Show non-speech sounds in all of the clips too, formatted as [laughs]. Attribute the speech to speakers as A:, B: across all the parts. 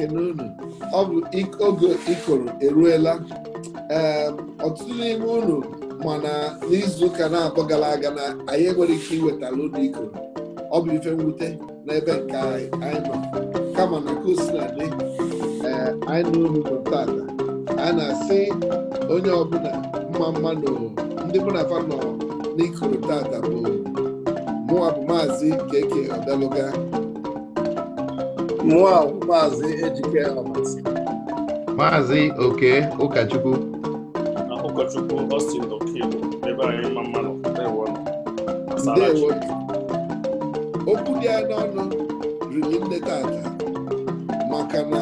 A: ekene unu ọ bụ oge ikoro eruola, ọtụtụ n'ime unu na n'izu ụka na abọ gara aga na anyị enwere ike iwetala ụlọ ikoro ọ bụ ife mwute n'ebe nke anyị nọ kama na nke osinadị ee eh, anyị na unu bụ tata a na-asị onye ọbụla mma mma ndị mụ na fa nọ n'ikoro tata bụ mụwa bụ maazị keke ọdaluga Maazị Ejike Almasi
B: Maazị Oke
C: Ụkọchukwu ebe anyị mma
A: okwu dị anya ọnụ riri nleta tata maka na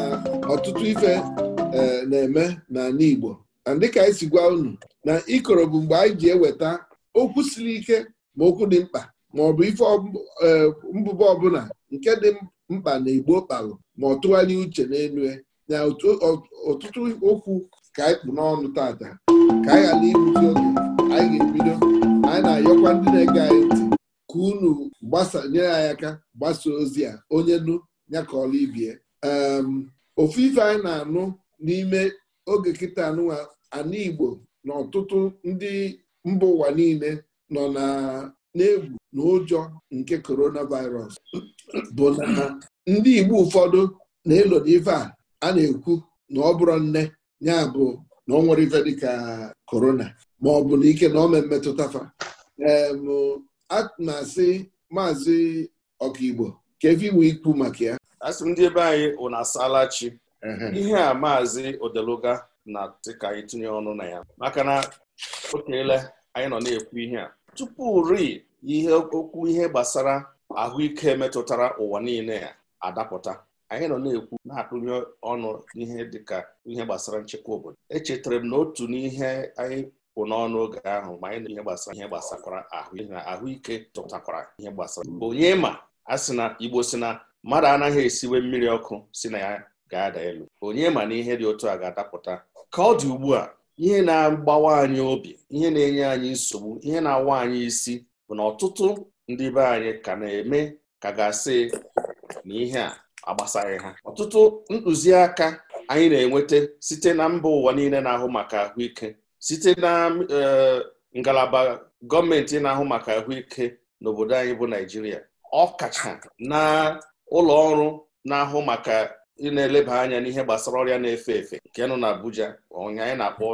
A: ọtụtụ ife e, na-eme n'ala Igbo na dịka anyị si gwa unu na ikoro bụ mgbe anyị ji eweta okwu siri ike ma okwu dị mkpa ma ọ bụ ife e, mbụba ọbụla nke dị mkpa na igbo kpalụ ma ọ uche n'elu e. na ọtụtụ okwu ka anyị kpụ n'ọnụ tata ka anyị ghara oge anyị ga-ebido anyị na-ayọkwa ndị na-ege anyị ntị ka unu gbasa nyere anyị aka gbasa ozi a onye nụ ya ka ọla ibie ehm, ofu ife anyị na-anụ n'ime oge kịta anụwa ana igbo na ọtụtụ ndị mba ụwa niile nọ na na-egwu na ụjọ nke coronavirus bụ na ndị Igbo ụfọdụ na-elo n'ife a a na-ekwu na ọ bụrụ nne ya bụ na ọ nwere ife dịka korona ma ọ bụ na ike na ome mmetụta fa na-asị maazị ọkaigbo ka efe iwe ikwu maka ya
C: asị m ndị ebe anyị wụ na asalachi ihe a maazị odeluga na dịka anyị tinye ọnụ na ya maka na okeele anyị nọ na-ekwu ihe a tupu ri ihe okwu ihe gbasara ahụike metụtara ụwa niile a adapụta anyị nọ na-ekwu na akụnye ọnụ ihe dịka ihe gbasara nchekwa obodo echetara m na otu n'ihe anyị kwụ n'ọnụ oge ahụ ma anyị na ihe gbasara ihe gbasakwara ahụike ahụike tụtakwara ihe gbasara onye ma a sị na Igbo si na mmadụ anaghị esiwe mmiri ọkụ si na ya ga-ada elu onye ma na ihe dị otu a ga-adapụta ka ọ dị ugbu a ihe na-agbawa anyị obi ihe na-enye anyị nsogbu ihe na-awa anyị isi bụ na ọtụtụ ndị be anyị ka na-eme ka ga-asị na ihe a agbasaghị ha ọtụtụ ntụziaka anyị na-enweta site na mba ụwa niile na-ahụ maka ahụike site na e, ngalaba gọọmenti na-ahụ maka ahụike n'obodo anyị bụ Naijiria kacha na ụlọ ọrụ na-ahụ maka ị na-eleba anya n'ihe gbasara ọrịa na-efe efe nke nọ na Abuja anyị na-akpọ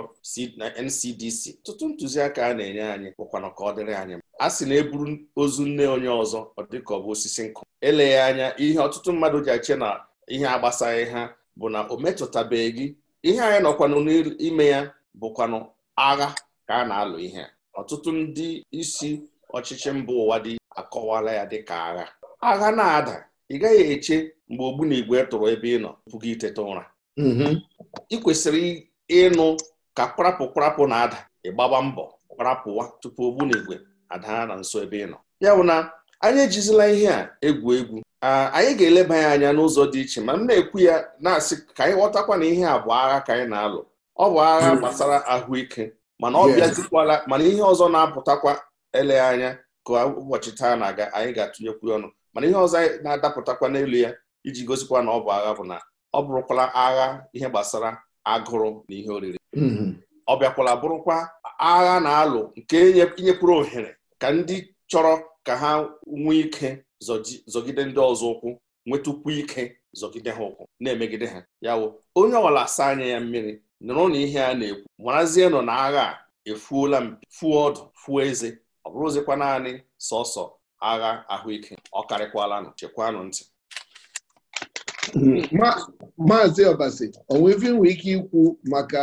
C: NCDC ọtụtụ ntụziaka a na-enye anyị bụkwana ka ọ dịrị anyị a sị na eburu ozu nne onye ọzọ ọ dị ọ bụ osisi nkụ eleghị anya ihe ọtụtụ mmadụ ji achị na ihe agbasaghị ha bụ na o metụtabeghị gị ihe anyị nọkwanụ n'ime ya bụkwanụ agha ka a na-alụ ihe ọtụtụ ndị isi ọchịchị mba ụwa dị akọwala ya dị ka agha agha na-ada ị gaghị eche mgbe ogbu na igwe tụrụ ebe ị nọ pụga iteta ụra mm-hmm. ị kwesịrị ịnụ ka kwarapụ kwarapụ na-ada ịgbagba mbọ kwarapụwa tupu ogbu na igwe ada na nso ebe ị nọ ya bụ na anyị ejizila ihe a egwu egwu anyị ga-eleba ya anya n'ụzọ dị iche ma m na-ekwu ya na-asị ka anyị ghọtakwa na ihe a bụ agha ka anyị na-alụ ọ bụ agha hmm. gbasara ahụike mana ọ bịazikwala mana ihe ọzọ na-apụtakwa ele anya ka ụbọchị taa na-aga anyị ga-atụnyekwu ọnụ mana ihe ọzọ anyị na-adapụtakwa n'elu ya iji gosikwa na ọ bụ agha bụ na ọ bụrụkwala agha ihe gbasara agụrụ na ihe oriri hmm. ọ bịakwala bụrụkwa agha na-alụ nke inyekwuru ohere ka ndị chọrọ ka ha nwee ike zọgide ndị ọzọ ụkwụ nwetụkwu ike zọgide ha ụkwụ na-emegide ha yawo onye ọwala asa anya ya mmiri nụrụ na ihe a na-ekwu marazie nọ na agha a efuola fuo ọdụ fuo eze ọ bụrụzikwa naanị sọsọ agha ahụike ọ karịkwala nụ chekwanụ ntị
A: maazị ọbasi onwe nwee ike ikwu maka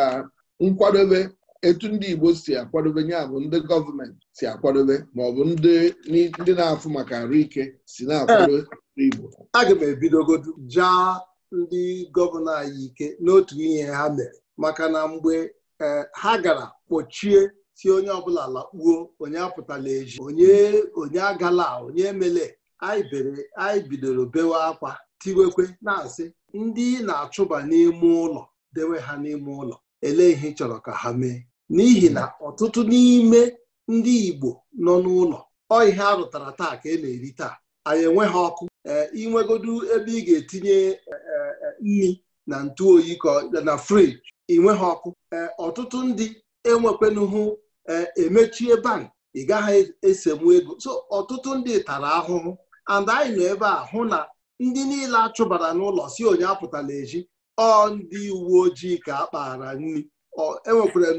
A: nkwadobe etu ndị Igbo si akwadobe ya bụ ndị gọọmenti si akwadobe ma ọ bụ
D: ndị na-afụ maka arụ ike
A: si na-akwado
D: Igbo aga m ebidogodu jaa ndị gọvanọ anyị ike n'otu ihe ha mere maka na mgbe e, ha gara kpọchie si onye ọbụla lakpuo onye apụtala eji onye onye agala onye emele anyị bidoro bewe akwa tiwekwe na-asị ndị na-achụba n'ime ụlọ dewe ha n'ime ụlọ ele ihe chọrọ ka ha mee n'ihi na ọtụtụ n'ime ndị Igbo nọ n'ụlọ ọ ihe a rụtara taa ka e na-eri taa anyị enweghị ọkụ inwegodu e, ebe ị ga-etinye e, e, nri na ka oyi na friji nweghị ọkụ ọtụtụ ndị enwekwenụhụ emechie bank ị gaghị esenwu ego so ọtụtụ ndị tara ahụhụ and anyị nọ ebe a hụ na ndị niile achụbara n'ụlọ si onye apụtala echi ọ ndị uwe ojii ka a kpaara nri enwekwara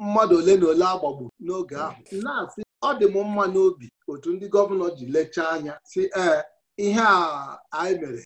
D: mmadụ ole na ole agbagbu n'oge ahụ na-asị ọ dị m mma n'obi otu ndị gọvanọ ji lechaa anya si ee ihe a anyị mere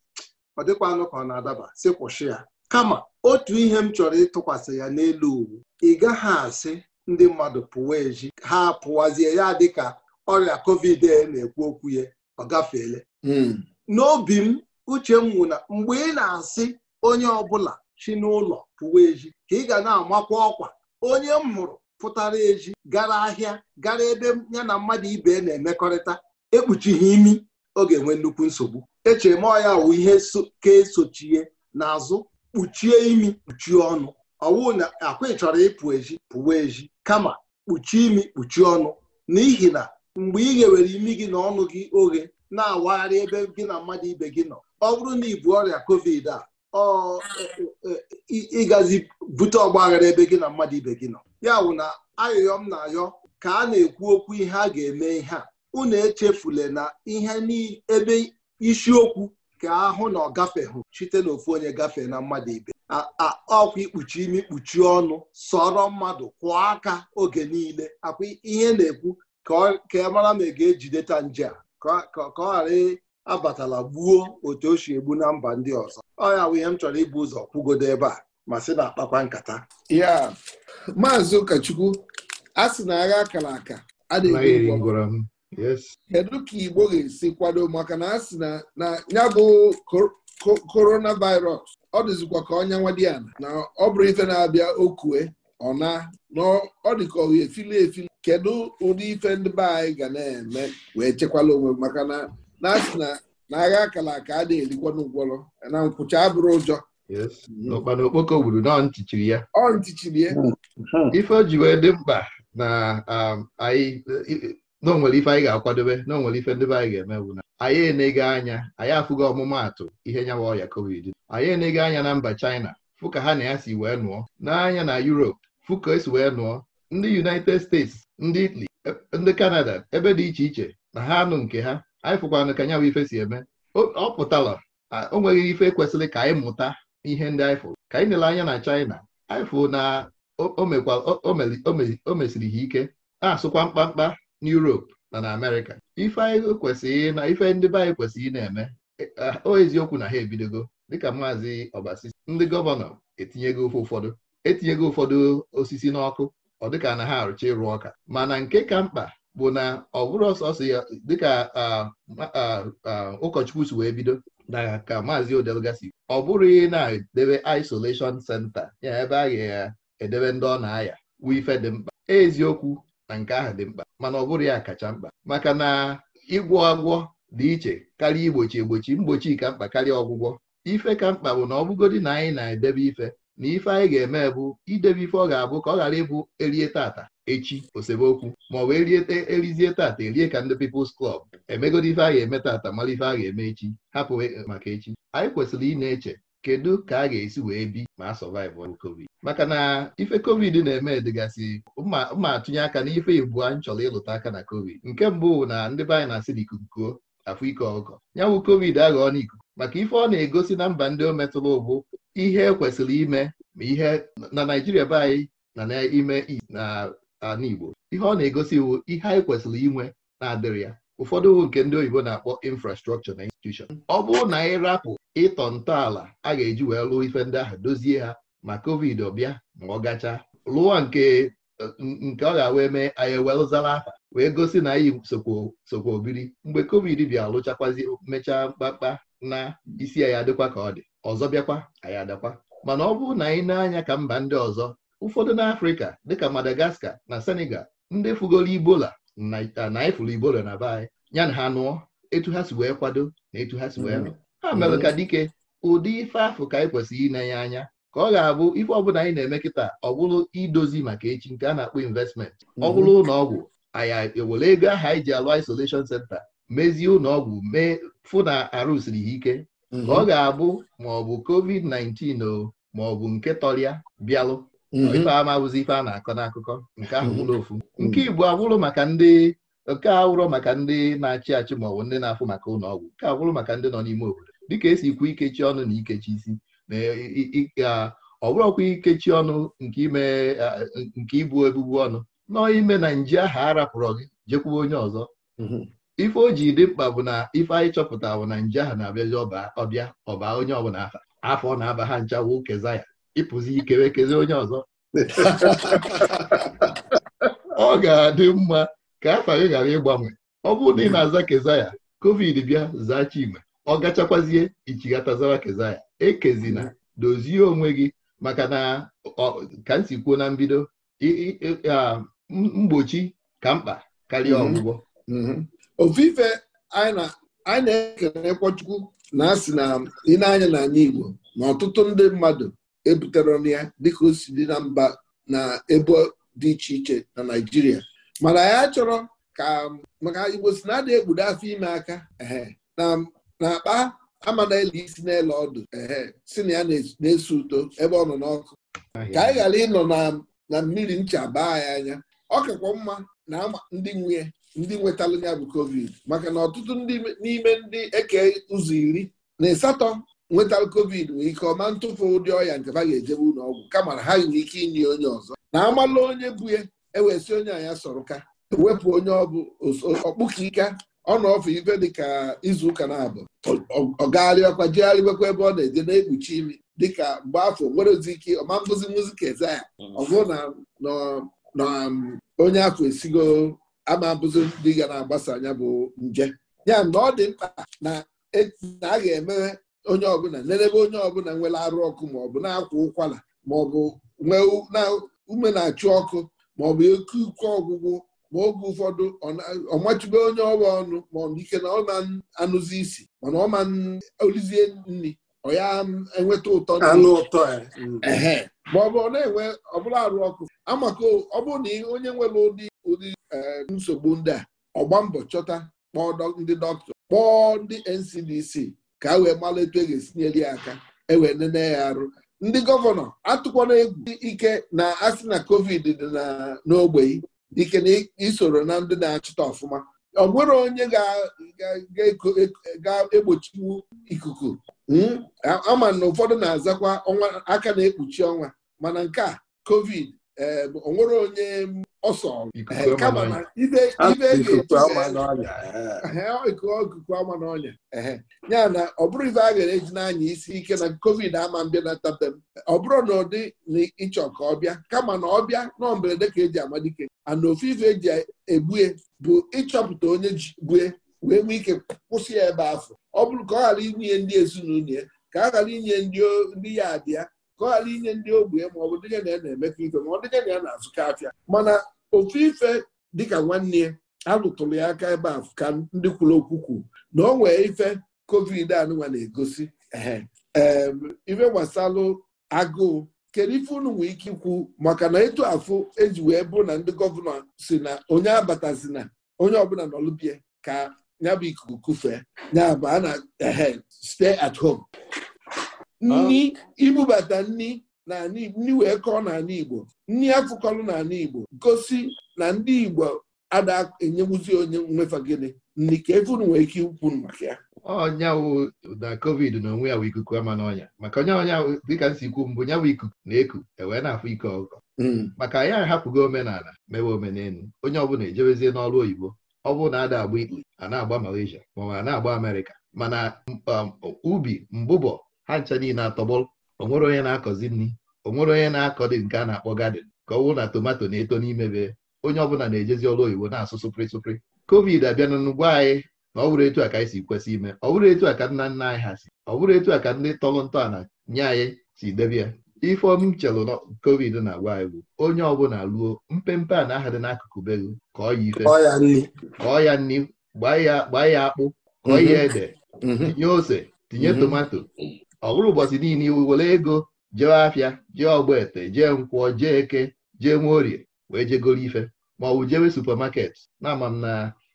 D: ọ dịkwanụ ka ọ na-adaba si kwụsị ya kama otu ihe m chọrọ ịtụkwasị ya n'elu uwu ị gaghị asị ndị mmadụ pụwa eji ha pụwazie ya dịka ọrịa covid na-ekwu okwu ya ọ gafeela hmm. n'obi m uche m na mgbe ị na-asị onye ọbụla chi n'ụlọ pụwa eji ka ị ga na-amakwa ọkwa onye m hụrụ pụtara eji gara ahịa gara ebe ya na mmadụ ibe na-emekọrịta ekpuchighị imi ọ ga-enwe nnukwu nsogbu echere m ọya wụ ihe ka esochie n'azụ kpuchie imi kpuchie ọnụ ọwụ na akwa ịchọrọ chọrọ ịpụ ezi pụwa ezi kama kpuchie imi kpuchie ọnụ n'ihi na mgbe ị ghewere imi gị na ọnụ gị oghe na-awagharị ebe gị na mmadụ ibe gị nọ ọ bụrụ na ị bụ ọrịa covid a E, e, e, ịgazi bute ọgbaghara ebe gị na mmadụ ibe gị nọ ya wụ na ayọyọ m na-ayọ ka a na-ekwu okwu ihe a ga-eme ihe a unu echefule na ihe ebe isiokwu ka ahụ na ọ gafeghụ site n'ofu onye gafee na mmadụ ibe ọkwa ikpuchi imi ikpuchi ọnụ sọrọ mmadụ kwụọ aka oge niile akwa ihe na-ekwu ka mara ma ị ga-ejideta nje a ka ọ ghara abatala gbuo otu o si egbu na mba ndị ọzọ ọ bụ ihe m chọrọ ịbụ ụzọ kwugodo ebe a ma sị na akpakwa nkata
A: ya maazị ụkọchukwu a sị na agha akara aka kedu ka igbo ga-esi kwado maka na a sị na ya bụ coronavirus ọ dịzikwa ka ọnya nwa dị ya na ọ bụrụ ife na-abịa okue ọ na na ọ dị ka efili efili kedu ụdị ife ndị be anyị ga na-eme wee chekwala onwe maka na na-asị na agha akala aka a na-erikwa n'ụgwọrọ na nkwụcha abụrụ ụjọ
B: ọkpana okpoko gburu na ntichiri ya
A: ọ ntichiri ya
B: ife o ji wee dị mkpa na um, anyị na onwere ife anyị ga-akwadobe na onwere ife ndebe be anyị ga-eme bụ na anyị enega anya anyị afụgo ọmụmaatụ ihe nyawa ọya covid anyị enega anya na mba China fụ ka ha na ya si wee nụọ n'anya na Europe fụ ka esi wee nụọ ndị United States ndị Italy e, ndị Canada ebe dị iche iche na ha anụ nke ha anyị fụkwana ka nyanwụ ife si eme ọ pụtala o nweghị ife kwesịrị ka anyị mụta ihe ndị anyị fụrụ ka anyị nele anya na China anyị fụ na o mesiri ha ike na-asụkwa mkpamkpa n'Europe na na Amerịka ife anyị kwesịrị na ife ndị be anyị kwesịrị ị na-eme e, o eziokwu na ha ebidogo dịka maazị Obasisi ndị gọvanọ etinyego ofe ụfọdụ etinyego ụfọdụ osisi n'ọkụ ọ dịka na ha arụcha ịrụ ọka mana nke ka mkpa bụ na ọ bụrụ ọsọsọ ya dịka ụkọchukwu si wee bido na ka maazị odelgasi ọ bụrụ ị na-edebe isolation senta ya ebe a ga-edebe ndị ọ na-aya wu ife dị mkpa eziokwu na nke ahụ dị mkpa mana ọ bụrụ ya kacha mkpa maka na ịgwọ agwọ dị iche karịa igbochi egbochi mgbochi ka mkpa karịa ọgwụgwọ ife ka mkpa bụ na ọbụgodi na anyị na-edebe ife na ife anyị ga-eme bụ idebe ife ọ ga-abụ ka ọ ghara ịbụ erie tata echi osebokwu ma ọ wee riete erizie tata erie ka ndị People's Club emegodi ife a ga-eme tata mara ife a ga-eme echi hapụ e, maka echi anyị kwesịrị ị na-eche kedu ka a ga-esi wee bi ma a sọvaịvụ covid maka na ife covid na-eme dịgasị mma atụnye aka na ife ibu anyị chọrọ ịlụta aka na covid nke mbụ na ndị be anyị na-asị na kuo afọ ike ọgọ nyanwụ covid aghọọ n'ikuku maka ife ọ na-egosi na mba ndị o metụrụ ụbụ ihe ekwesịrị ime ma ihe na Naijiria be anyị na n'ime na ana Igbo ihe ọ na-egosi iwu ihe anyị kwesịrị inwe na-adịrị ya ụfọdụ iwu nke ndị oyibo na-akpọ infrastructure na institushọn. ọ bụrụ na anyị rapụ ịtọ ntọala a ga-eji wee lụọ ife ndị ahụ dozie ha ma covid ọbịa ma ọ gachaa lụọ nke nke ọ ga-awee mee anyị ewelụzara afa wee gosi na anyị sokwa obiri mgbe covid bịa lụchakwazi mechaa mkpakpa na isi anyị adịkwa ka ọ dị ọzọ bịakwa anyị adakwa mana ọ bụrụ na anyị na-anya ka mba ndị ọzọ ụfọdụ n'afrịka dịka madagascar na senegal ndị fugoro ibola na ifuru ibola na be anyị ya na ha nụọ etu ha si wee kwado na etu ha si wee hmm. nụ ha mere ka dike ụdị ife afụ ka anyị kwesịrị inenye anya ka ọ ga-abụ ife ọbụla anyị na-eme kịta ọ bụrụ idozi maka echi nke a na-akpọ investment ọ hmm. bụrụ ụlọ anyị ewere ego ahụ anyị ji alụ isolation center mezie ụlọọgwụ mee fụ na arụsiri ya ike ka hmm. ọ ga-abụ ma ọ bụ covid-19 o ma ọ bụ nke tọrịa bịalụ Mm-hmm. ife ama awụzi ife a na-akọ n'akụkọ nke ahụ bụrụ mm-hmm. ofu mm-hmm. nke igbo abụrụ maka ndị nke awụrụ maka ndị na-achị achị ma ọ bụ ndị na-afụ maka ụlọ ọgwụ nke abụrụ maka ndị nọ n'ime obodo dịka esi ikwu ikechi ọnụ na ikechi isi na e, ọ bụrụkwa ikechi ọnụ nke ibu ebubu ọnụ nọ ime na nje ahụ arapụrụ gị jekwuo onye ọzọ ife o ji dị mkpa bụ na ife anyị chọpụtara bụ na nje ahụ na-abịazi ọbịa ọba onye ọbụla afọ na-aba ha nchawo ya ịpụzi ikere kezi onye ọzọ ọ ga-adị mma ka afa gị ghara ịgbanwe ọ bụrụ na ị na-aza kezaya covid bịa zaa Chinwe ọ gachakwazie ichighatazawa kezaya ekezina dozie onwe gị maka na ka m kwuo na mbido mgbochi ka mkpa karịa mhm. ọgwụgwọ
A: mhm. ofufe anyị na na-asị na na-anya Igbo na ọtụtụ ndị mmadụ ebutere ọnụ ya dịka o si dị na mba na ebo dị iche iche na naijiria mana ya chọrọ ka maka Igbo si na adị egbudo afọ ime aka na akpa amana ele isi n'ele ọdụ si na ya na-eso uto ebe ọ nọ n'ọkụ ka anyị ghara ịnọ na mmiri ncha baa ya anya ọ kakwa mma na ndị nwunye ndị nwetalụ ya bụ covid maka na ọtụtụ ndị n'ime ndị eke ụzọ iri na ịsatọ nwetal covid nwee ike ọma ntụfu ụdị ọya nke ha ga-ejebe ụlọ ọgwụ kama na ha nwere ike inye onye ọzọ na amalụ onye bụ ya ewee si onye anya sọrọ ka wepụ onye ọbụ ọkpụka ika ọ nọ ọfụ ife dịka izuụka na-abụ ọ gagharị jegharịbekwa ebe ọ na-eje na-ekpuchi imi dịka mgbe afọ nwere ozi ike ọma nkụzi muzika eze ya mm. ọ bụrụ na um, onye afọ esigo ama dị ndị ga na-agbasa anya bụ nje ya na ọ dị mkpa na e, a ga-emewe onye ọbụla n'ebe onye ọbụla nwere arụ ọkụ maọbụ na-akwa ụkwara maọbụ ọ nwee ume na-achụ ọkụ maọbụ ọ ike ọgwụgwụ ma oge ụfọdụ ọmachube onye ọwa ọnụ ma ike na ọ anụzi isi mana ọ ma olizie nri ọ ya enweta ụtọ anụ ụtọ mm. ọ na-enwe ọbụla arụ ọkụ amaka ọ bụrụ na onye nwere ụdị ụdị eh, nsogbu ndị a ọgba mbọ chọta kpọọ ndị dọkịta kpọọ ndị NCDC ka wee malụ e ga-esinyere ya aka ewee nene ya arụ ndị gọvanọ atụkwana egwu ike na asị na covid dị n'ogbei ike na isoro na ndị na-achịta ọfụma ọ nwere onye ga-egbochiwu ikuku hmm? ama na ụfọdụ na-azakwa ọnwa aka na-ekpuchi ọnwa mana nke a covid Eh, onwere onye ọsọ eh, kama na ibe ikuku ama na ọnya ya na ọ bụrụ ife a gara eji n'anya isi ike na covid ama mbịa na tabe m ọ bụrụ na ụdị na ịchọ ka ọ bịa kama na ọ bịa nọ mberede ka eji amadike ana ofe ife eji egbue bụ ịchọpụta onye ji gbue wee nwee ike kwụsị ya ebe afọ ọ bụrụ ka ọ ghara inye ndị ezinụlọ ya ka a ghara inye ndị ya abịa ka ghara inye ndị ogbenye ma ọ bụ dịnye na ya na-emekọ ife ma ọ dịnye na ya na-azụka afịa mana ofu ife dịka nwanne ya a ya aka ebe a ka ndị kwuru okwu kwuru na ọ nwee ife covid anụnwa na-egosi ife gbasalụ agụụ kedu ife unu nwee ike ikwu maka na etu afụ eji wee bụ na ndị gọvanọ si na onye na onye ọbụla nọlụbie ka ya bụ ikuku kufee ya a na stay at home nni ah. ibubata nni na nni wee kọọ n'ala Igbo nni afụkọlụ ala Igbo gosi na ndị Igbo ada enyebuzi onye nwefa gịnị nni ka efunu nwee ike ikwu maka ya
B: ọnya wụ na covid na onwe ya wụ ikuku ama n'ọnya maka onye ọnya dịka m si kwu mbụ ya ikuku na-eku ewee na-afụ ike ọkụkọ hmm. maka ya ahapụgo omenala mewe omenelu onye ọbụla ejebezie n'ọrụ oyibo ọ bụ na ada agba ikpe a na-agba Malaysia ma ọ na-agba amerika mana um, ubi mbụbọ ha ncha niile atọgbọlụ onwere onye na-akọzi nri onwere onye na-akọ dị nke a na-akpọ gadin ka ọ wụ na tomato na-eto n'ime be onye ọbụla na-ejezi ọrụ oyibo na-asụ sụpịrị sụpịrị covid abịana n'ugbo anyị na ọ bụrụ etu a ka anyị si kwesị ime ọ bụrụ etu a ka nna nna anyị ha si ọ bụrụ etu a ka ndị tọrọ ntọala nye anyị si debe ya m chelụ na covid na-agwa anyị bụ onye ọbụla ruo mpempe a na-aha dị n'akụkụ be ka ọ ya ife ka ya nri gbaa ya akpụ kọọ ya ede mm-hmm. tinye ose tinye mm-hmm. tomato ọ bụrụ ụbọchị niile iwu were ego jee afịa jee ọgbete jee nkwọ jee eke jee orie wee jegoro ife ma ọ bụ jewe supamaket na-ama m na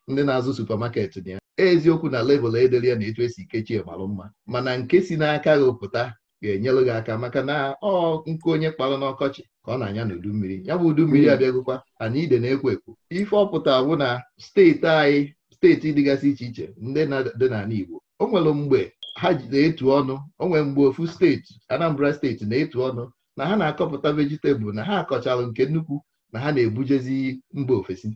B: ndị na-azụ supamakeetị na ya eziokwu na level e ya na etu esi kechie marụ mma mana nke si n'aka gị pụta ga-enyelụ gị aka maka na ọ nke onye kparụ n'ọkọchị ka ọ na-anya n'udu mmiri ya bụ udu mmiri hmm. abịagokwa ana ide na-ekwo ekwo ife ọpụta bụ na steeti anyị steeti dịgasị iche iche ndị dị n'ala Igbo o nwere mgbe ha na-etu ọnụ o mgbe ofu steeti Anambra steeti na-etu ọnụ na ha na-akọpụta vejitabụl na ha akọchara nke nnukwu na ha na-ebujezi mba ofesi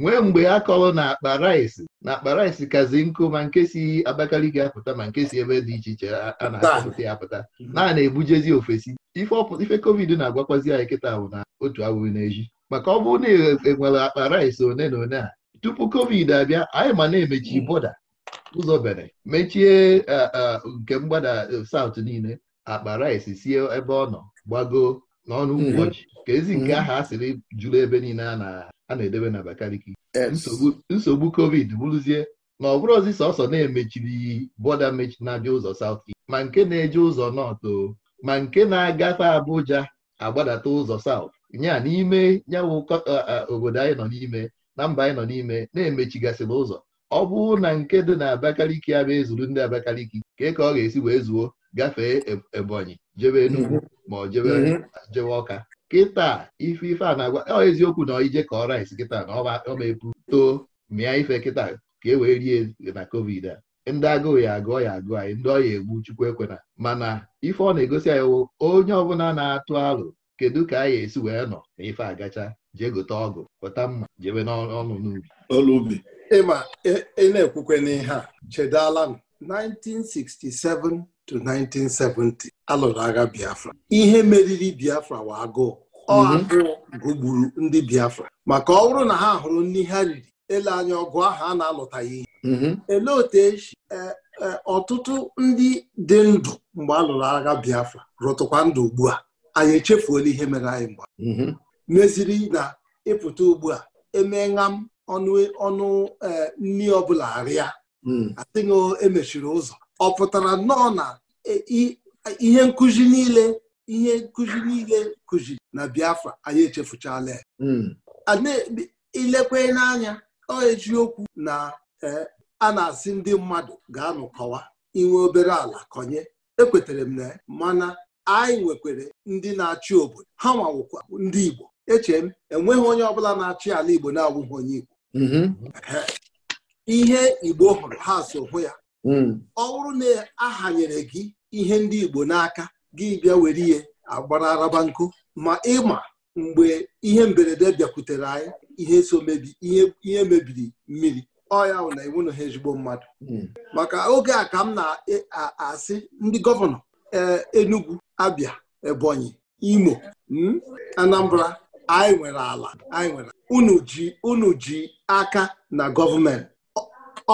B: nwee mgbe a kọrọ na akpa raịsị na akpa raịsị kazi nkụ ma nke si Abakaliki apụta ma nke si ebe dị iche iche a na-akọpụta ya apụta mhm. na a na-ebujezi ofesi ife kovid na-agwakwazi anyị kịta ahụ na otu awụrụ n'eji maka ọ bụrụ na enwere e akpa raịsị one na one a tupu covid abịa anyị ma na-emechi mhm. bọda ụzọ mechie e, e, nke mgbada saụt niile akpa rice sie ebe ọ nọ gbago n'ọnụ mm-hmm. ụbọchị ka ezi nke mm-hmm. aha a sịrị jụrụ ebe niile a na-edebe na Abakaliki nsogbu covid bụrụzie na ọ bụrụ ọzi sọsọ na-emechiri bọda mechi na-abịa ụzọ saut ma nke na-eje ụzọ nọtụ ma nke na-agafe Abuja agbadata ụzọ saut nya n'ime nyawụ e, obodo anyị nọ n'ime na mba anyị nọ n'ime na-emechigasịla ụzọ ọ bụrụ na nke dị na Abakaliki ya ezuru ndị Abakaliki kee ka ọ ga-esi wee zuo gafee Ebonyi jebe Enugu mhm. ma ọ jebe mhm. Ọka kịta ife ife a na-agwa ọ eziokwu na ije ka ọ rice kịta na ọ epu too mịa ife kịta ka e wee rie na covid a ndị agụụ ya agụọ ya agụọ anyị ndị ọya egbu chukwu ekwena mana ife ọ na-egosi anyị wụ onye ọbụla na-atụ alụ kedu ka anyị esi wee nọ
D: na ife agacha jee gote ọgụ pụta mma jebe n'ọnụ n'ubi ịma ị na-ekwukwe n'ihe a chedala m 1967 to 1970 alụrụ agha Biafra ihe meriri Biafra wa agụụ ọ mhm. ndị Biafra maka ọ bụrụ na ha hụrụ ndị ha riri ele anya ọgụ ahụ a na-alụtaghị ihe mhm. ele otu esi e, e, ọtụtụ ndị dị ndụ mgbe alụrụ lụrụ agha Biafra rụtụkwa ndụ ugbu a anyị echefuola ihe mere anyị mgba. Mhm. meziri na ịpụta ugbu a emee ṅam ọnụ ọnụ e, nri ọbụla arịa hmm. adịghị emechiri ụzọ ọ pụtara nnọọ na e, ihe nkụzi niile ihe nkụzi niile kụzi na Biafra anyị echefuchala ya hmm. ilekwe n'anya ọ eziokwu na e, a na-asị ndị mmadụ ga-anụkọwa inwe obere ala kọnye ekwetara m na mana anyị nwekwara ndị na-achị obodo ha nwawụkwa ndị Igbo eche m enweghị onye ọbụla na-achị ala Igbo na-awụghị onye Igbo Mm-hmm. ihe igbo hụrụ ha so hụ ya mm. ọ bụrụ na ahanyere gị ihe ndị igbo n'aka gị bịa were ihe agbara araba nkụ ma ịma mgbe ihe mberede bịakwutere anyị ihe so mebi ihe mebiri mmiri ọ ya na iwu na ha ezigbo mmadụ mm. maka oge a ka m na-asị e, ndị gọvanọ e, Enugu Abia Ebonyi Imo mm, Anambra anyị nwere ala anyị nwere unu ji aka na gọọmenti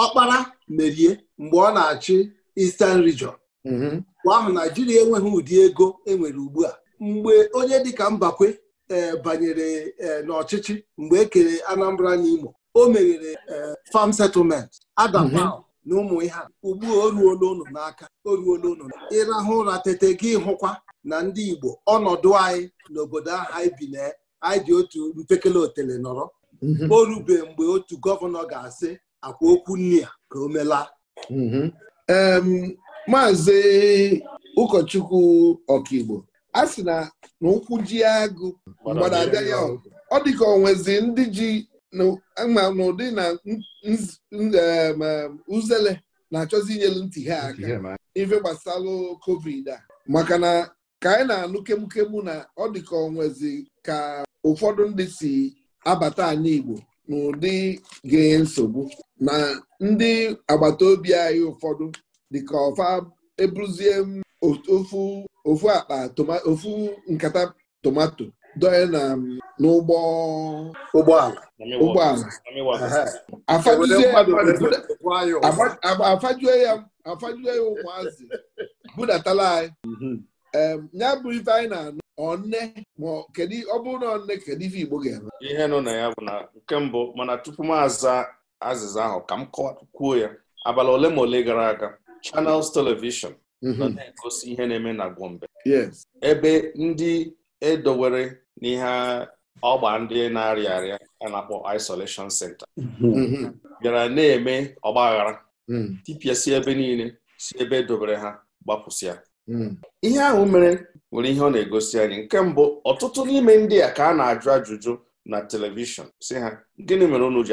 D: ọkpara merie mgbe ọ na-achị Eastern Region mhm. mgbe ahụ Naijiria enweghị ụdị ego enwere ugbu a mgbe onye dịka Mbakwe e, banyere e, n'ọchịchị mgbe e kere Anambra na Imo o meghere e, farm settlement adam mhm. na ụmụ ihe a ugbu o ruola n'aka o ruola ịrahụ ụra tete gị hụkwa na ndị Igbo ọnọdụ anyị n'obodo ahụ anyị bi na anyị dị otu mpekele otele nọrọ mhm. o rube mgbe otu gọvanọ ga-asị akwa okwu nne ya ka o melaa mhm. maazị
A: ụkọchukwu ọkaigbo a sị na na ji agụ mgbada abịa ya ọ dị ka onwezi ndị ji ma n'ụdị na uzele na-achọzi inyelu ntị ha aka ife gbasara covid a maka na ka anyị na-anụ kemukemu na ọ dị onwezi ka ụfọdụ ndị si abata anyị Igbo n'ụdị ga-enye nsogbu na ndị agbata obi anyị ụfọdụ dịka ọfa m ofu akpa ofu nkata tomato doye na n'ụgbọ ụgbọala ụgbọala ya ụmụazị budatala anyị mhm. ya bụ ife anyị na-anụ ọnne ma kedu ọ bụrụ na ọnne kedu ife Igbo ga-eme
C: ihe nọ na ya bụ na nke mbụ mana tupu m aza azịza ahụ ka m kwuo ya abalị ole ma ole gara aga Channels Television mhm. nọ na-egosi ihe na-eme na Gombe ebe ndị edowere n'ihe ọgba ndị na-arịa arịa a na-akpọ isolation center
D: mhm. Mhm.
C: bịara na-eme ọgbaghara tipịa si ebe niile si ebe edobere ha gbapụsịa Hmm. ihe ahụ mere nwere ihe ọ na-egosi anyị nke mbụ ọtụtụ n'ime ndị a ka a na-ajụ ajụjụ na telivishọn si ha gịnị mere unu ji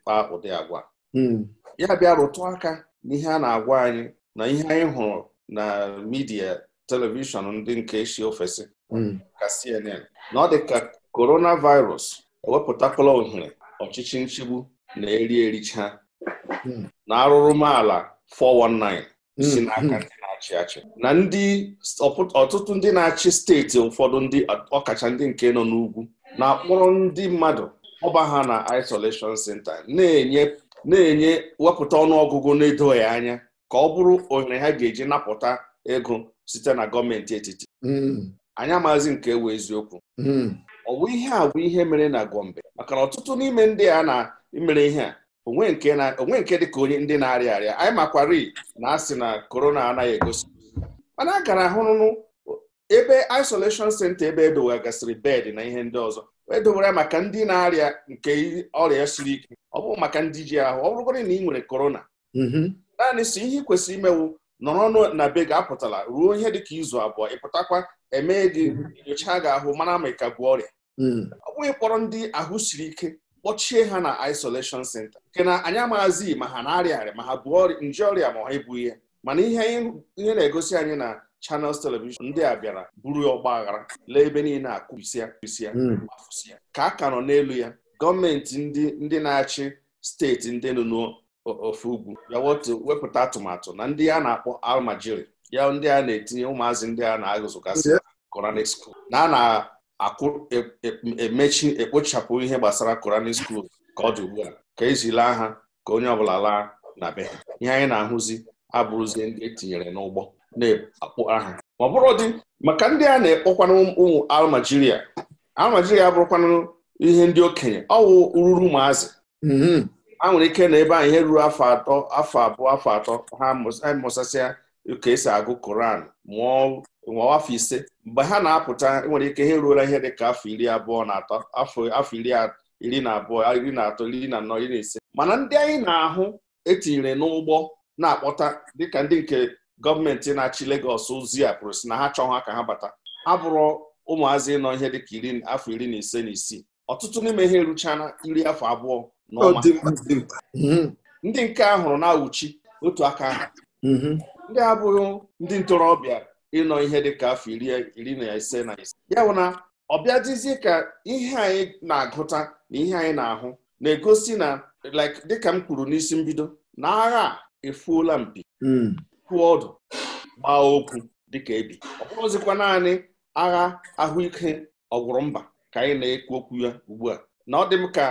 C: kpaa ụdị agwa hmm. ya bịa rụtụ aka n'ihe a na-agwa anyị na ihe anyị hụrụ na midia telivishọn ndị nke si ofesi hmm. ka CNN na ọ dị ka coronavirus ewepụtakwala ohere ọchịchị nchigbu na-eri ericha na arụrụmaala 419 si n'aka na-achị achị na ndị ọtụtụ ndị na-achị steeti ụfọdụ ndị ọkacha ndị nke nọ n'ugwu na-akpọrọ ndị mmadụ ọba ha na isolation center na-enye wepụta ọnụọgụgụ na-edoghị anya ka ọ bụrụ ohere ha ga-eji napụta ego site na gọọmenti etiti hmm. anyị amaghịzi nke ewu eziokwu hmm. ọ bụ ihe a bụ ihe mere na Gombe maka na ọtụtụ n'ime ndị a na imere ihe a onwe nke na onwe nke dịka onye ndị na-arịa arịa anyị makwari na asị na korona anaghị egosi mana a gara ahụrụnụ ebe isolation senta ebe edowegasịrị bed na ihe ndị ọzọ edowere maka ndị na-arịa nke ọrịa siri ike ọ bụ maka ndị ji ahụ ọ bụrụgodị na ị nwere korona mm-hmm. naanị si ihe ị kwesịrị imewu nọrọ na be gị apụtala ruo ihe dịka izu abụọ ịpụtakwa emee gị mm-hmm. nyocha gị ahụ mara ma ịka ka bụ ọrịa mm. ọ bụghị kpọrọ ndị ahụ siri ike kpọchie ha na isolation center nke na anyị amaazi ma ha na-arịa arịa ma ha bụ nje ọrịa ma ha ebu ihe mana ihe ihe na-egosi anyị na channels television ndị a bịara buru ọgba aghara lee ebe niile akụbisịa bisịa afụsịa ka a ka nọ n'elu ya gọọmenti ndị ndị na-achị steeti ndị nọ n'ofe ugwu bịawọtụ wepụta atụmatụ na ndị a na-akpọ almajiri ya ndị a na-etinye ụmụazị ndị a na-agụzụgasị Quranic school na a na emechi e, e, ekpochapụ ihe gbasara Quranic school ka ọ dị ugbu a ka ezila ha ka onye ọbụla laa na be ha ihe anyị na-ahụzi abụrụzie ndị etinyere n'ụgbọ na-akpụ aha ma ọ bụrụ dị maka ndị a na-ekpọkwanụ ụmụ almajiria almajiria abụrụkwanụ ihe ndị okenye ọ wụ ụmụazị mm-hmm. a nwere ike na ebe a ihe ruru afọ atọ afọ abụọ afọ atọ ha mụsasịa ka esi agụ koran mụọ afọ ise mgbe ha na-apụta e nwere ike ha eruola ihe dị ka afọ iri abụọ na atọ afọ iri na abụọ iri na atọ iri na anọ iri na ise mana ndị anyị na-ahụ etinyere n'ụgbọ na-akpọta dịka ndị nke gọọmenti na-achị Legọs ozi a pụrụ si na ha chọọ ha ka ha bata abụrụ ụmụazị nọ ihe dịka iri afọ iri na ise na isii ọtụtụ n'ime ihe eruchana iri afọ abụọ na ọma mhm. ndị nke a hụrụ na-awụchi otu aka ahụ mhm. ndị abụghị ndị ntorobịa ịnọ ihe dị ka afọ iri na ise na ise ya bụ na ọ bịadịzie ka ihe anyị na-agụta na ihe anyị na-ahụ na-egosi na dịka m kwuru n'isi mbido na agha efuola mpi hmm. kwụọ ọdụ gbaa okwu dịka ebi ọ bụrụzikwa naanị agha ahụike ọgwụrụ mba ka anyị na-ekwu okwu ya ugbu a na ọ dị m ka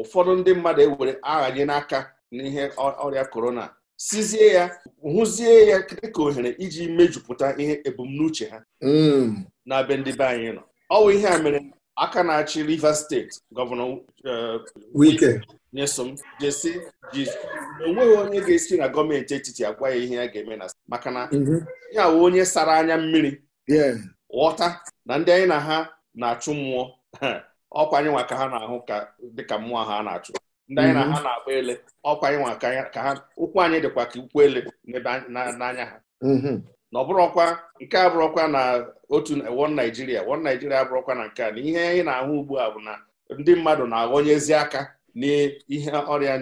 C: ụfọdụ ndị mmadụ ewere aghanye n'aka n'ihe ọrịa korona sizie ya hụzie ya dịka ohere iji mejupụta ihe ebumnuche ha
D: mm.
C: na be ndị be anyị nọ ọ bụ ihe a mere aka na-achị Rivers steeti gọvanọ uh, Wike Nyesom jesi ji enweghị onye ga-esi na gọọmenti etiti agwa ya ihe ya ga-eme na maka na ya mhm. wụ onye sara anya mmiri ghọta na ndị anyị na ha na-achụ mmụọ [laughs] ọkwa anyị nwa ka ha na-ahụ dịka mmụọ ha na-achụ ndị anyị na mhm. ha na akpọ ele ọkwa ịnwa ka ha ụkwụ anyị dịkwa ka ụkwụ ele n'anya ha mhm. na ọ nke a bụrụkwa na otu wọn naijiria wọn naijiria na nke a na ihe anyị na-ahụ ugbu a bụ na ndị mmadụ na-aghọnyezi aka n'ihe ọrịa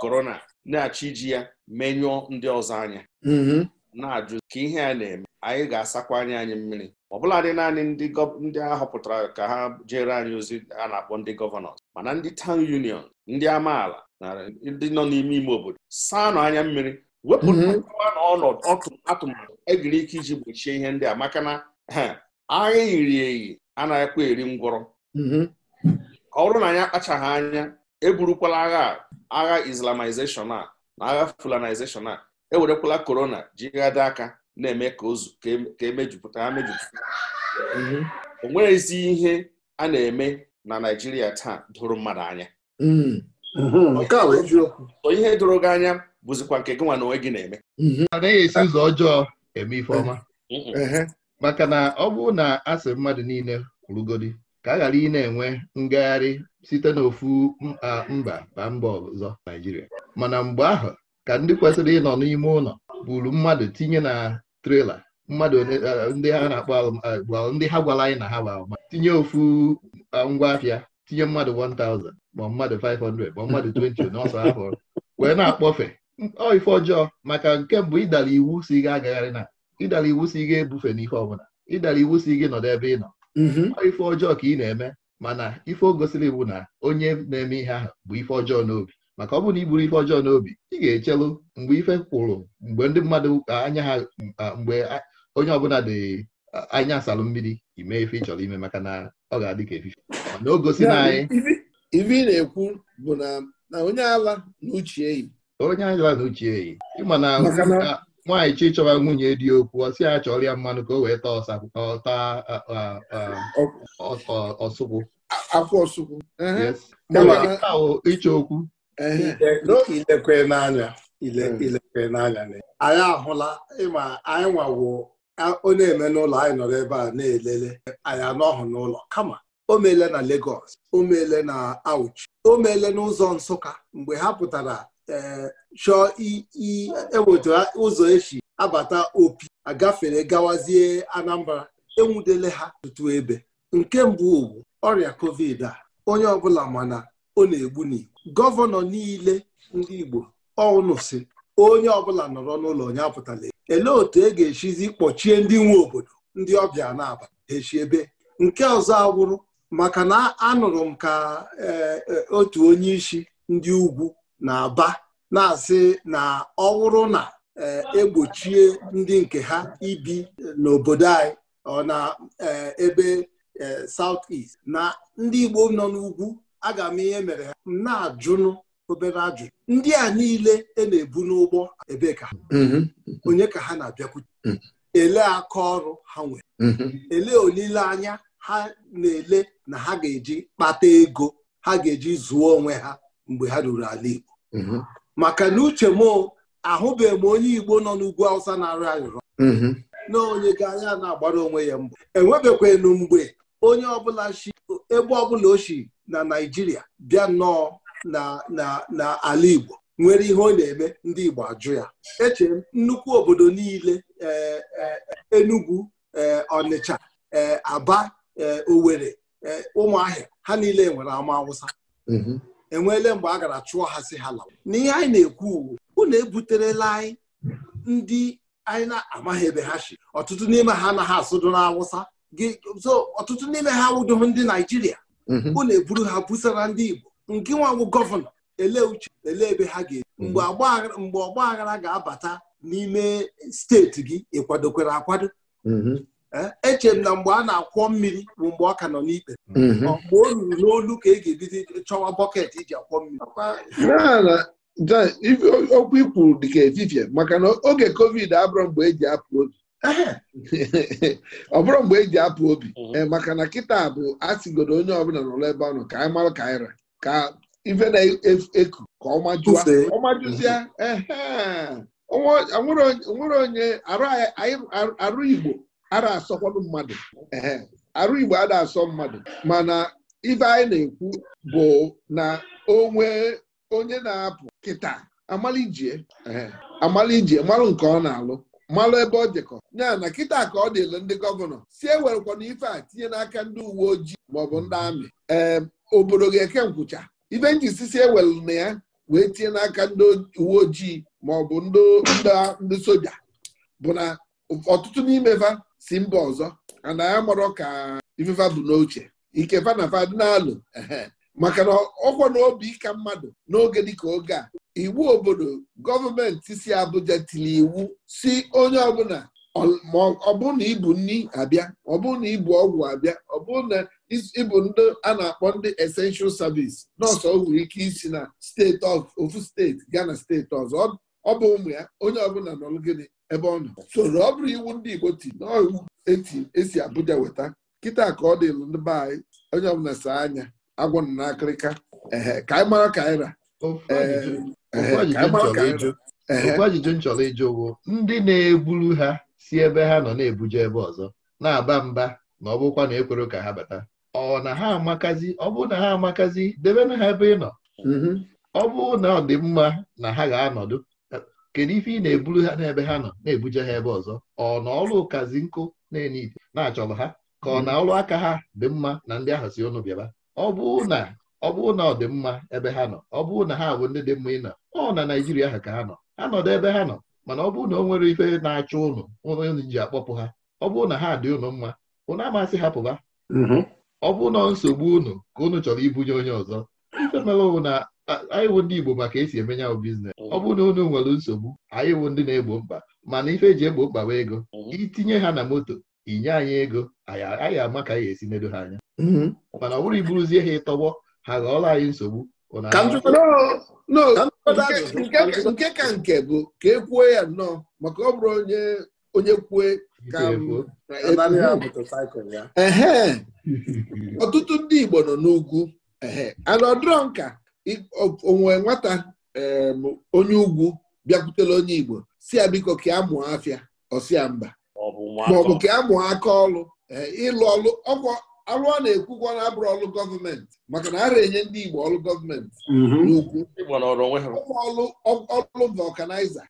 C: korona eh, na-achọ iji ya menyụọ ndị ọzọ anya mhm. na-ajụ ka ihe a na-eme anyị ga-asakwa anya anyị mmiri ọbụladị naanị ndị a họpụtara ka ha jere anyị ozi a na-akpọ ndị gọvanọ mana ndị tawn union ndị amaala na ndị nọ n'ime ime obodo saa nụ anya mmiri wepụta mhm. ọnọdụ atụmatụ egiri ike iji gbochie ihe ndị a maka na agha yiri eyi anaghịkwa eri ngwọrọ mhm. ka ọ bụrụ na anyị akpachaghị anya eburukwala agha agha islamization a na agha fulanization a ewerekwala korona jighada aka na-eme ka ozu ka emejupụta e ha mejupụta mhm. o nweghịzi ihe a na-eme na naijiria taa dụrụ mmadụ anya
A: mm. mhm.
C: o ihe dụrụ gị anya bụzikwa nke gị nwa na onwe gị na-eme
B: mhm. anaghị esi ụzọ ọjọọ eme ifeọma maka na ọ bụrụ na a mmadụ niile kwurugodi ka a ghara ị na-enwe ngagharị site n'ofu mba ba mba ọzọ Naịjirịa mana mgbe ahụ ka ndị kwesịrị ịnọ n'ime ụlọ buru mmadụ tinye na trela mmadụ ndị ha na-akpọ ndị ha gwara anyị na ha gba tinye ofu ngwa afịa tinye mmadụ 1000 ma mmadụ 500 ma mmadụ 20 n'ọsọ afọ wee na-akpọfe ọ ife ọjọọ maka nke mbụ ịdara iwu si ga agagharị na ịdara iwu si ga ebufe n'ife ọbụla ịdara iwu si gị nọdụ ebe ị nọ mm-hmm. ọ ife ọjọọ ka ị na-eme mana ife o gosiri bụ na onye na-eme ihe ahụ bụ ife ọjọọ n'obi maka ọ bụrụ na iburu ife ọjọọ n'obi ị ga-echelu mgbe ife kwụrụ mgbe ndị mmadụ anya ha mgbe onye ọbụla dị anya asalụ mmiri ime ife ị chọrọ ime maka na ọ ga-adị ka efife na o gosi na anyị
A: ife ị na-ekwu bụ na onye ala na uche
B: eyi onye ala na uche eyi ịma na nwaanyị chi chọrọ nwunye dị okwu ọ sị ya chọrọ ya mmanụ ka o wee taa taa ọsụkwụ
A: akwụ ọsụkwụ
D: ịchọ okwu ilekwe n'anya ilekwe hmm. anyị ahụla ịma anyị nwawo Onye na-eme n'ụlọ anyị nọrọ ebe a na-elele anyị anọghị n'ụlọ kama o meele na Lagos o meele na Auchi o meele n'ụzọ Nsụka mgbe ha pụtara eh, chọọ eweta ụzọ esi abata opi agafere gawazie Anambra enwudele ha tutu ebe nke mbụ ugwu ọrịa covid a onye ọbụla mana ọ na-egbu n'igbo gọvanọ niile ndị Igbo ọnụ si onye ọbụla nọrọ n'ụlọ onye apụtala elee otu e ga echizi kpọchie ndị nwe obodo ndị ọbịa na-aba echi ebe nke ọzọ awụrụ maka na anụrụ m ka e, e, otu onye isi ndị ugwu na-aba na-asị na ọwụrụ na egbochie e ndị nke ha ibi n'obodo anyị ọ na ebe South East na ndị Igbo nọ n'ugwu aga m ihe mere ha m na-ajụnụ obere ajụjụ ndị a niile e na-ebu n'ụgbọ ebee ka mhm. onye ka ha na-abịakwute mhm. ele aka ọrụ ha nwere mhm. ele olileanya ha na-ele na ha ga-eji kpata ego ha ga-eji zụọ onwe ha mgbe ha ruru ala Igbo maka na uche m ahụbeghị m onye Igbo nọ n'ugwu Awụsa na-arụ arịrọ na onye ga anya na-agbara onwe ya mbụ enwebekwanụ mgbe onye ọbụla shi ebe ọbụla ochie na naijiria bịa nnọọ na ala igbo nwere ihe ọ na-eme ndị igbo ajụ ya eche nnukwu obodo niile e, e, enugwu e, ọnịcha aba owere ụmụahịa ha niile nwere ama awụsa mm-hmm. enweele mgbe a gara chụọ ha si ha lawa n'ihe anyị na-ekwu unu ebuterela anyị ndị anyị na-amaghị ebe ha si ọtụtụ n'ime ha anaghị asụdụ awụsa. ọtụtụ n'ime ha awụdoghị ndị naijiria bụ mhm. na-eburu ha busara ndị igbo nke nwanwụ gọvanọ ele uche ele ebe ha ga-ebi mhm. mgbe ọgba aghara ga-abata n'ime steeti gị ịkwadokwere akwado mhm. eh, echere m na mgbe a na-akwọ mmiri bụ mgbe ọ ka nọ n'ikpe mgbe o ruru n'olu ka e ga-ebido chọwa bọket iji e akwọ mmiri
A: okwu ikwuru dịka efifie maka na oge covid abụrụ mgbe eji apụ oge [laughs] ọ bụrụ mgbe eji apụ obi mhm. eh, maka na kịta bụ asịgodo onye ọbụla n'ụlọ ebe ọ ka anyị marụ ka anyị ra ka ife na-eku ka ọmajụzịa nwere onye arụ Igbo ara asọkwanụ mmadụ arụ Igbo ada asọ mmadụ mana ibe anyị na-ekwu bụ na onwe onye na-apụ kịta amalije amalije marụ nke ọ na-alụ malụ ebe ọ dịkọ ya na kịta ka ọ dịle ndị gọvanọ si ewerekwana ife a tinye n'aka ndị uwe ojii maọbụ ndị amị ee obodo ga-eke nkwụcha ife si ewelu na ya wee tinye n'aka ndị uwe ojii maọbụ ndị soja bụ na ọtụtụ n'ime fa si mba ọzọ ana ya marọ ka ifefa bụ n'oche ike fa na fa dị n'alụ maka na ọkwa na obi ka mmadụ n'oge dịka oge a iwu obodo gọọmenti si Abụja tiri iwu si onye ọbụla ma na ibu nri abịa ọbụ na ibu ọgwụ abịa ọbụ na ịbụ ndị a na-akpọ ndị essential service nọọsụ o nwere ike isi na steeti ofu steeti gaa na steeti ọzọ ọ bụ ụmụ ya onye ọbụla nọrọ gịnị ebe ọ nọ soro ọ bụrụ iwu ndị Igbo ti n'iwu esi Abuja weta kịta ka ọ dịlụ ndị be anyị onye ọbụla saa anya agwọ na akịrịka ka anyị mara ka anyị ra okwu
B: ajụjụ m chọrọ ịjụ ụgwọ ndị na-eburu ha si ebe ha nọ na-ebuje ebe ọzọ na-aba mba na ọ bụkwa na ekwere ka ha bata ọ na ha amakazi ọ bụ na ha amakazi debe na ha ebe ị nọ mm-hmm. ọ bụ na ọ dị mma na ha ga-anọdụ kedu ife ị na-eburu ha n'ebe ha nọ na-ebuje ha ebe ọzọ ọ na ọrụ ụkazi nkụ na-enye na-achọrọ ha ka ọ na ọrụ aka ha dị mma na ndị ahụ si ọnụ bịaba ọ bụ na ọ bụrụ na ọ dị mma ebe ha nọ ọ bụrụ na ha bụ ndị dị mma ị na ọ na Naijiria ha ka ha nọ ha nọdụ ebe ha nọ mana ọ bụrụ na ọ nwere ife na-achọ ụnụ ụnụ ji akpọpụ ha ọ bụrụ na ha dị ụnụ mma ụnụ amasị hapụ ha mm-hmm. ọ bụ na nsogbu ụnụ ka ụnụ chọrọ ibunye onye ọzọ ife mere ụnụ na anyị wụ ndị Igbo maka esi emenye ahụ biznes ọ bụrụ na ụnụ nwere nsogbu anyị wụ ndị na-egbo mkpa mana ife eji egbo mkpa ego mm-hmm. itinye ha na moto inye anyị ego anyị ama ka anyị esi nedo ha anya mm-hmm. mana ọ bụrụ iburuzie
A: ha ịtọgbọ ha ghọọla anyị nsogbu nke ka nke bụ ka e kwuo ya nnọọ maka ọ bụrụ onye onye kwue ka ee [laughs] ọtụtụ ndị Igbo nọ n'ugwu ana ọdụrọ onwe nwata onye ugwu bịakwutela onye Igbo si ya biko ka a mụọ afịa ọsịa mba maọbụ ka a mụọ aka ọlụ ịlụ ọlụ ọkwa alụ na na-ekwukwa na abụrụ ọlụ gọọmenti maka na ara enye ndị Igbo ọlụ gọọmenti mhm. ọlụ vulkaniza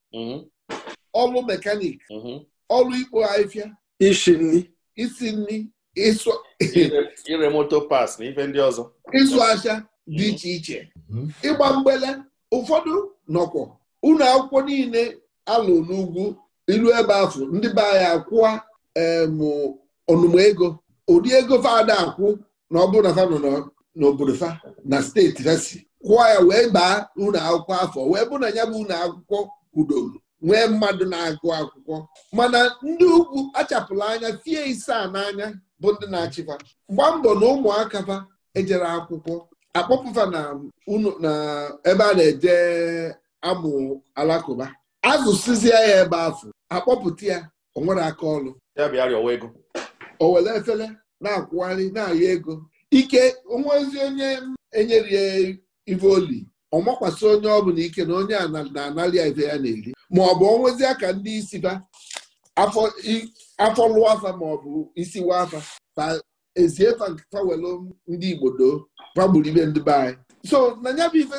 A: ọlụ mekanik mhm. mhm. ọlụ ikpo ahịfịa isi nri
C: ire moto pas na ife ndị
A: ọzọ ịzụ ahịa dị iche iche ịgba mgbele ụfọdụ nọkwọ ụlọ akwụkwọ niile alụ n'ugwu ilu ebe afọ ndị be anyị akwụwa ọnụmụ ego ụdị ego fada akwụ na ọ bụrụ na fa nọ n'obodo fa na steeti fa si kwụọ ya wee baa unu akwụkwọ afọ wee bụ na ya bụ unu akwụkwọ kwudoro nwee mmadụ na-agụ akwụkwọ mana ndị ugwu achapụla anya fie isa n'anya bụ ndị na-achịfa gbaa mbọ na ụmụaka fa ejere akwụkwọ akpọpụfa na ebe a na-eje amụ alakụba sizie ya ebe afọ akpọpụta ya o nwere aka ọrụ o were efere na-akwụgharị na-arịọ ego ike onwe ozi onye enyerie ivoli ọ makwasị onye ọ bụla ike na onye na-anarị ya ya na-eri ma ọ bụ onwezi aka ndị isi ba afọ lụọ afa ma ọ bụ isi wa afa fa ezie fawelu ndị Igbo doo ibe ndị be anyị so na ya bụ ife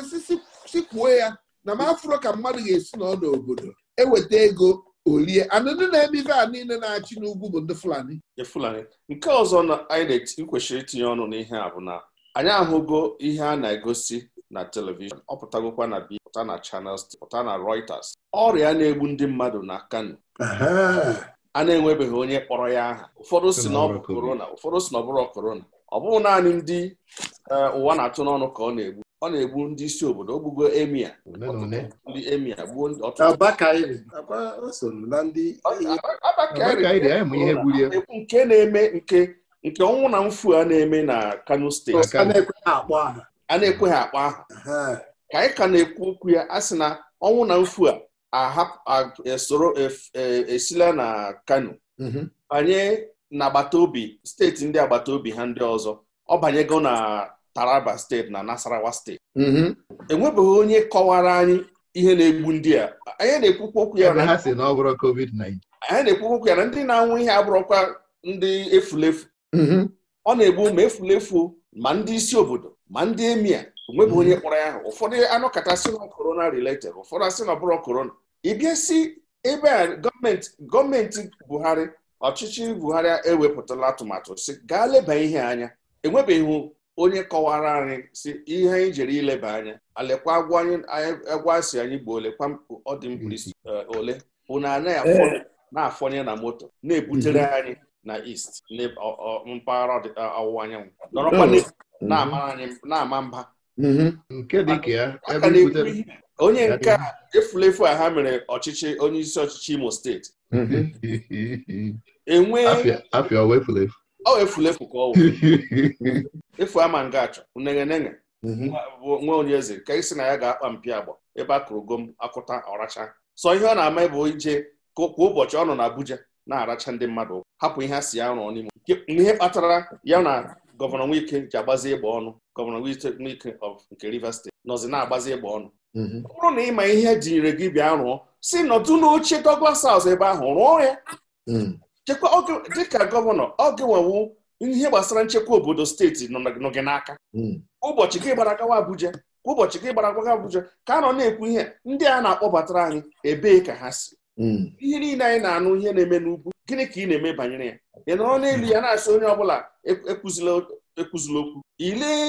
A: sikwuo ya na m afụrụ ka mmadụ ga-esi n'ọdụ obodo eweta ego olie anụnụ na-eme ife a niile na-achị n'ugwu bụ ndị Fulani
C: ndị nke ọzọ na anyị kwesịrị itinye ọnụ n'ihe a bụ na anyị ahụgo ihe a na-egosi na telivishọn ọ pụtagokwa na bi pụta na Channels pụta na Reuters ọrịa na-egbu ndị mmadụ na Kano
D: a
C: na-enwebeghị onye kpọrọ ya aha ụfọdụ si na ọ bụ korona ụfọdụ si na ọ bụrụ korona ọ bụghị naanị ndị eh, ụwa na-atụ n'ọnụ ka ọ na-egbu ọ na-egbu ndị isi obodo ogbugo emia ndị emia gbuo egbu eh, nke na-eme nke nke ọnwụ na mfu a na-eme na Kano steeti a na-ekweghị akpa aha ka anyị ka na-ekwu okwu ya a sị na ọnwụ na mfu a esoro e, e, esila na Kano mhm. banye na agbata obi steeti ndị agbata obi ha ndị ọzọ ọ banyego na Taraba steeti na Nasarawa steeti mm-hmm. enwebeghị onye kọwara anyị ihe na-egbu ndị a anyị na-ekwukwu okwu ya na anyị na-ekwukwu okwu ya na ndị na-anwụ ihe abụrụkwa ndị efulefu mm-hmm. ọ na-egbu ma efulefu ma ndị isi obodo ma ndị emia onwebeghị onye mm-hmm. kpọrọ ya ahụ ụfọdụ anọkọta sị na korona related ụfọdụ asị na ọbụrụ korona ịbịa si ebe a gọọmenti gọọmenti Buhari ọchịchị buhari ewepụtala atụmatụ si gaa leba ihe anya enwebeghị onye kọwara anyị si ihe anyị jere ileba anya alekwa agwa si anyị gbuo olekwa ọdịmkpirisi eh, ole bụ na anaghị na-afọnye na moto na-ebutere mhm. anyị na East mpaghara ọwụwa anyanwụ nọrọkwa oh. mhm. na-ama mba
A: mhm. onye nke
C: efulefu a ha mere ọchịchị onye isi ọchịchị Imo steeti
A: [laughs]
C: enwee afịa ọwa efulefu ọ ka [laughs]
B: ọwa
C: efu ama nga achọ unegenege mhm. nwa onye eze ka isi na ya ga-akpa mpi agba ebe a kụrụ gom akụta ọracha sọ ihe ọ na-ama bụ ije kwa ụbọchị ọ nọ na Abuja na-aracha ndị mmadụ hapụ ihe a si ya rụọ n'ime ihe kpatara ya na gọvanọ Wike ji agbazi ịgba ọnụ gọvanọ Wike of nke Rivers steti nọzi na-agbazi ịgba ọnụ mhm. ọ bụrụ na ịma ihe e jinyere gị bịa rụọ si nọdụ n'oche Douglas House ebe ahụ rụọ ya mm. chekwa dịka gọvanọ ọ wewu ihe gbasara nchekwa obodo steeti nọ gị n'aka hmm. ụbọchị gị gbara gawa Abuja ka ụbọchị gị gbara gawa Abuja ka a nọ na-ekwu ihe ndị a na-akpọbatara anyị ebee ka ha si hmm. ihe niile anyị na-anụ ihe na-eme n'ugwu gịnị ka ị na-eme banyere ya ị nọrọ n'elu ya na-asị onye ọ bụla e, ekwuzila okwu ilee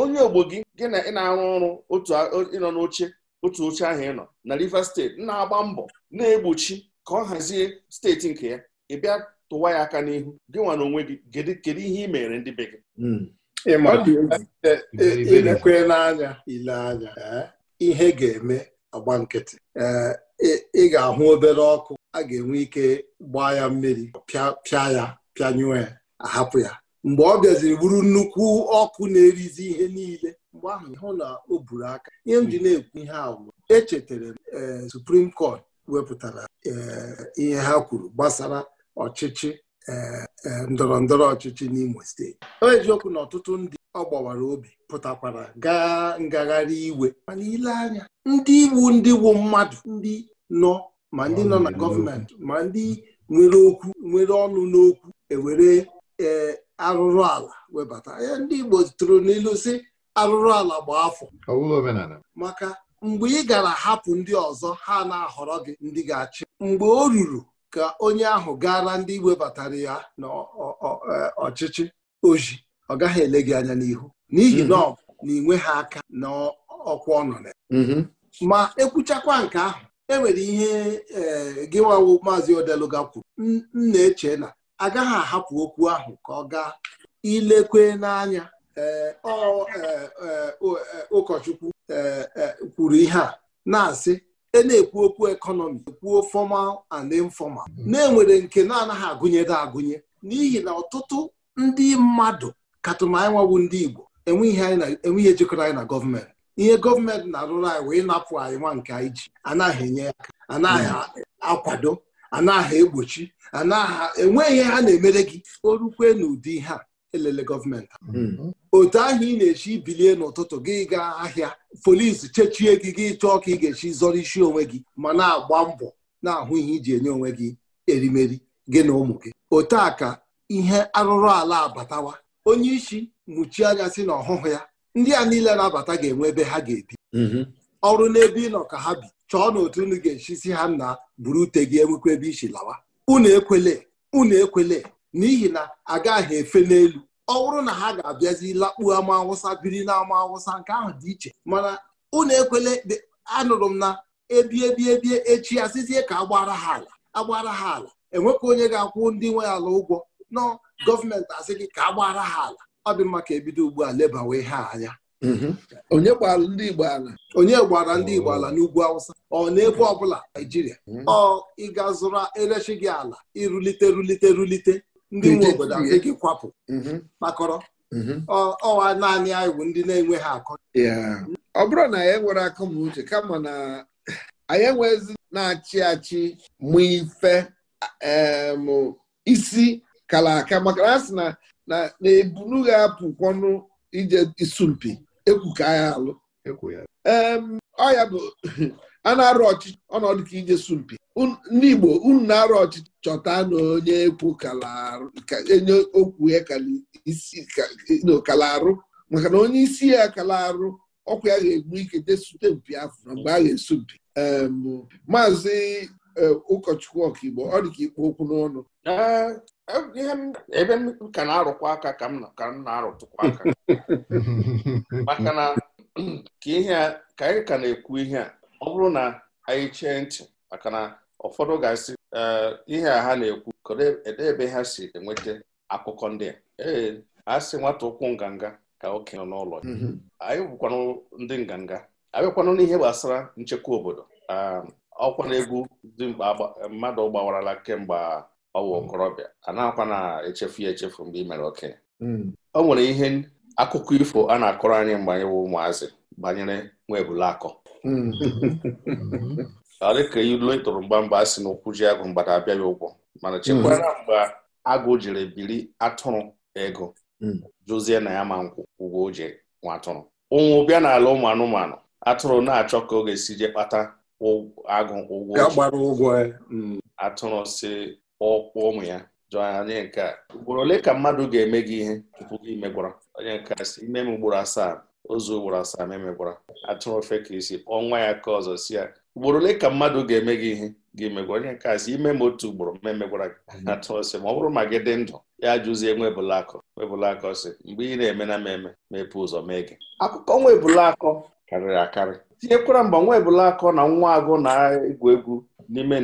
C: onye ogbo gị gị na ị na-arụ ọrụ ịnọ n'oche otu oche ahụ ị nọ na Rivers steeti na-agba mbọ na-egbochi ka ọ hazie steeti nke ya ị bịa tụwa ya aka n'ihu gị nwa n'onwe gị kedu ihe ị mere ndị be gị
D: ilekwe n'anya ile anya ihe ga-eme agba nkịtị ị ga-ahụ obere ọkụ a ga-enwe ike gbaa ya mmiri pịa ya pịanyụọ ya ahapụ ya mgbe ọ bịaziri bụrụ nnukwu ọkụ na-erizi ihe niile mgbe ahụ hụ na o buru aka ihe m ji hmm. na-ekwu ihe ahụ echetara m e, Supreme Court wepụtara e, ihe ha kwuru gbasara ọchịchị eh, eh, ndọrọ ndọrọ ọchịchị n'Imo steeti ọ eziokwu na ọtụtụ ndị ọ gbawara obi pụtakwara gaa ngagharị iwe mana ile anya ndị iwu ndị wu mmadụ ndị nọ ma ndị nọ na gọọmenti ma ndị nwere okwu nwere ọnụ n'okwu ewere eh, arụrụ ala webata ya ndị Igbo tụrụ n'ilu si arụrụ ala gba afọ maka mgbe ị gara hapụ ndị ọzọ ha na-ahọrọ gị ndị ga-achị mgbe o ruru ka onye ahụ gara ndị webatara ya n'ọchịchị e, oji ọ gaghị ele gị anya n'ihu n'ihi mm-hmm. na ọ na inwe ha aka na ọkwa mm-hmm. ma ekwuchakwa nke ahụ enwere ihe e, gị nwawo maazị odeluga kwuru m na-eche na agaghị ahapụ okwu ahụ ka ọ gaa ilekwe n'anya e, ụkọchukwu kwuru ihe a na-asị e na-ekwu okwu ekọnọmi ekwuo formal and informal hmm. na-enwere nke na-anaghị agụnyere agụnye n'ihi na ọtụtụ ndị mmadụ katụma anyị nwawu ndị Igbo enweghị ejikọrọ anyị na gọọmenti ihe gọọmenti na-arụrụ anyị wee napụ anyị nwa nke anyị ji anaghị enye aka anaghị hmm. akwado anaghị egbochi anaghị enweghị ihe ha na-emere gị o rukwe n'ụdị ihe a elele gọọmenti hmm. otu ahụ ị na-echi bilie n'ụtụtụ gị gaa ahịa polis chechie gị gị chọọ ka ị ga-echi zọrọ isi onwe gị ma na-agba mbọ na-ahụ ihe iji enye onwe gị erimeri gị na ụmụ gị otu a ka ihe arụrụ ala abatawa onye isi mụchie anya si na ọhụhụ ya ndị a niile na-abata ga-enwe ebe ha ga-ebi mm-hmm. ọrụ n'ebe ị nọ ka ha bi chọọ na otu unu ga si ha na buru ute gị enwekwa ebe isi lawa unu ekwele unu ekwele n'ihi na agaghị efe n'elu ọ bụrụ na ha ga-abịazi lakpuo ama awụsa biri na ama awụsa nke ahụ dị iche mana unu ekwele anụrụ m na ebie ebie ebie echi asịzie ka agbara ha ala agbara ha ala enwekwa onye ga-akwụ ndị nwe ala ụgwọ nọ gọọmenti asị gị ka agbara ha ala ọ dị mma ka ebido ugbu a lebawe ha anya mm-hmm. onye gbara ndị Igbo ala onye gbara ndị Igbo ala n'ugwu Awụsa ọ n'ebe ọbụla Naijiria ọ ịga zụrụ erechi gị ala irulite rulite rulite ndị nwe obodo adịghị kwapụ kpakọrọ mhm. mhm. ọwa naanị anyị
A: bụ ndị na-enweghị akọ ọ bụrụ na anyị nwere akọmuche kama na anyị enwezi na-achị achị mụ ife isi kala aka maka na a sị na ebunu ga-apụkwanụ ije isumpi ekwu ka anyị alụ ọ ya bụ [laughs] a na-arụ ọchịchị ọnọdụ ka ije sumpi ndị Igbo unu na-arụ ọchịchị chọta na onye ekwu enye okwu ya kala arụ maka na onye isi ya kala arụ ọkwa ya ga-egbu ike desute mpi afọ na mgbe a ga-esu mpi maazị e, ụkọchukwu ọkaigbo ọ dị ka ikpo okwu n'ọnụ e,
D: e,
C: ebe m ka na-arụkwa aka ka m na-arụtụkwa aka
A: [laughs]
C: maka na [clears throat] ka ihe ka anyị ka na-ekwu ihe a ọ bụrụ na anyị chee ntị maka na ụfọdụ ga-asị ihe a ha na-ekwu kedụ e, ebe ha si enweta akụkọ ndị a ee a sị nwata ụkwụ nganga ka okenye nọ n'ụlọ mm-hmm. anyị bụkwanụ ndị nganga anyị bịakwanụ n'ihe gbasara nchekwa obodo ọkwa na egwu dị mkpa mmadụ gbawarala kemgbe ọ okorobịa a na-akwa na-echefu ya echefu mgbe ị mere okenye mm. o nwere ihe akụkọ ifo a na-akọrọ anyị mgbe anyị bụ ụmụazị banyere nwa ebule akọ
B: mm. [laughs] mm-hmm.
C: Ka dịka ilu ịtụrụ mgba mgbe a na ụkwụ agụ mgbada abịaghị ụgwọ mana chekwara mgbe agụ jiri biri atụrụ ego mm. jụzie na ya ma nkwụ ụgwọ e. mm. o nwa atụrụ ụnwụ bịa n'ala ụmụ anụmanụ atụrụ na-achọ ka ọ ga-esi je kpata agụ ụgwọ atụrụ si ọkpụ ụmụ ya jụọ onye nke a ugboro ole ka mmadụ ga-eme gị ihe tupu gị megwara onye nke si ime m ugboro asaa ozu ugboro asaa memegwara atụrụ ofe ka isi nwa ya ka ọzọ si ya ugboro ole ka mmadụ ga-eme gị ihe gị megwa onye nke asị ime ma otu ugboro ma emegwara gị mhm. atụ ọsị ma ọ bụrụ ma gị dị ndụ ya jụzie nwebụlakọ nwebụlakọ ọsị mgbe ị na-eme na mmemme mepee ụzọ mee gị akụkọ nwa nwebụlakọ karịrị akarị tinyekwara mgbe nwebụlakọ na nwa agụ na-egwu egwu n'ime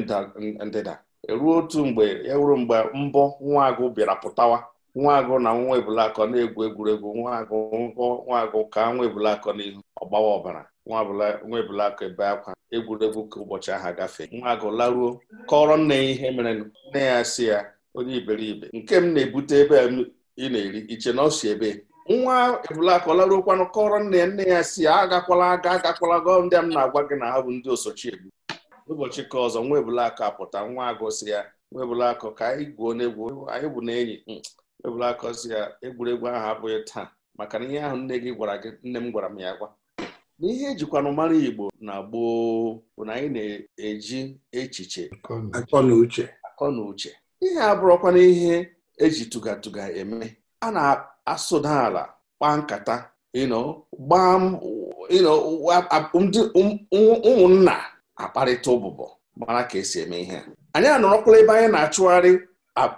C: ndịda eruo otu mgbe ya e wuru mgbe mbọ nwa agụ bịara pụtawa nwaagụ na nwa ebulakọ na-egwu egwuregwu nwa nwaagụ ka nwa ebulakọ n'ihu ọgbawa ọbara nwa ebulakọ ebe akwa egwuregwu ka ụbọchị ahụ nwa nwaagụ laruo kọrọ nne ya ihe mere nne ya si ya onye iberibe nke m na-ebute ebe ị na-eri iche na ọ si ebe nwa ebulakọ kwanụ kọrọ nne ya nne ya si ya agakwala aga agakwala gọ ndị a m na-agwa gị na ha bụ ndị osochi egbu ụbọchị ka ọzọ nwa ebulakọ apụta nwa agụ si ya nwa ebulakọ ka anyị gwuo n'egwu anyị bụ na enyi ebula akọzi ya egwuregwu ahụ abụghị taa maka na ihe ahụ nne gị gwara gị nne m gwara m ya gwa na ihe ejikwanụ mara Igbo na gboo bụ na anyị na-eji echiche akọ na uche akọ na uche ihe abụrọkwana ihe eji tugatuga eme a na-asụda ala kpaa nkata gbaa ụmụnna akparịta ụbụbọ mara ka esi eme ihe anyị anọrọkwala ebe anyị na-achụgharị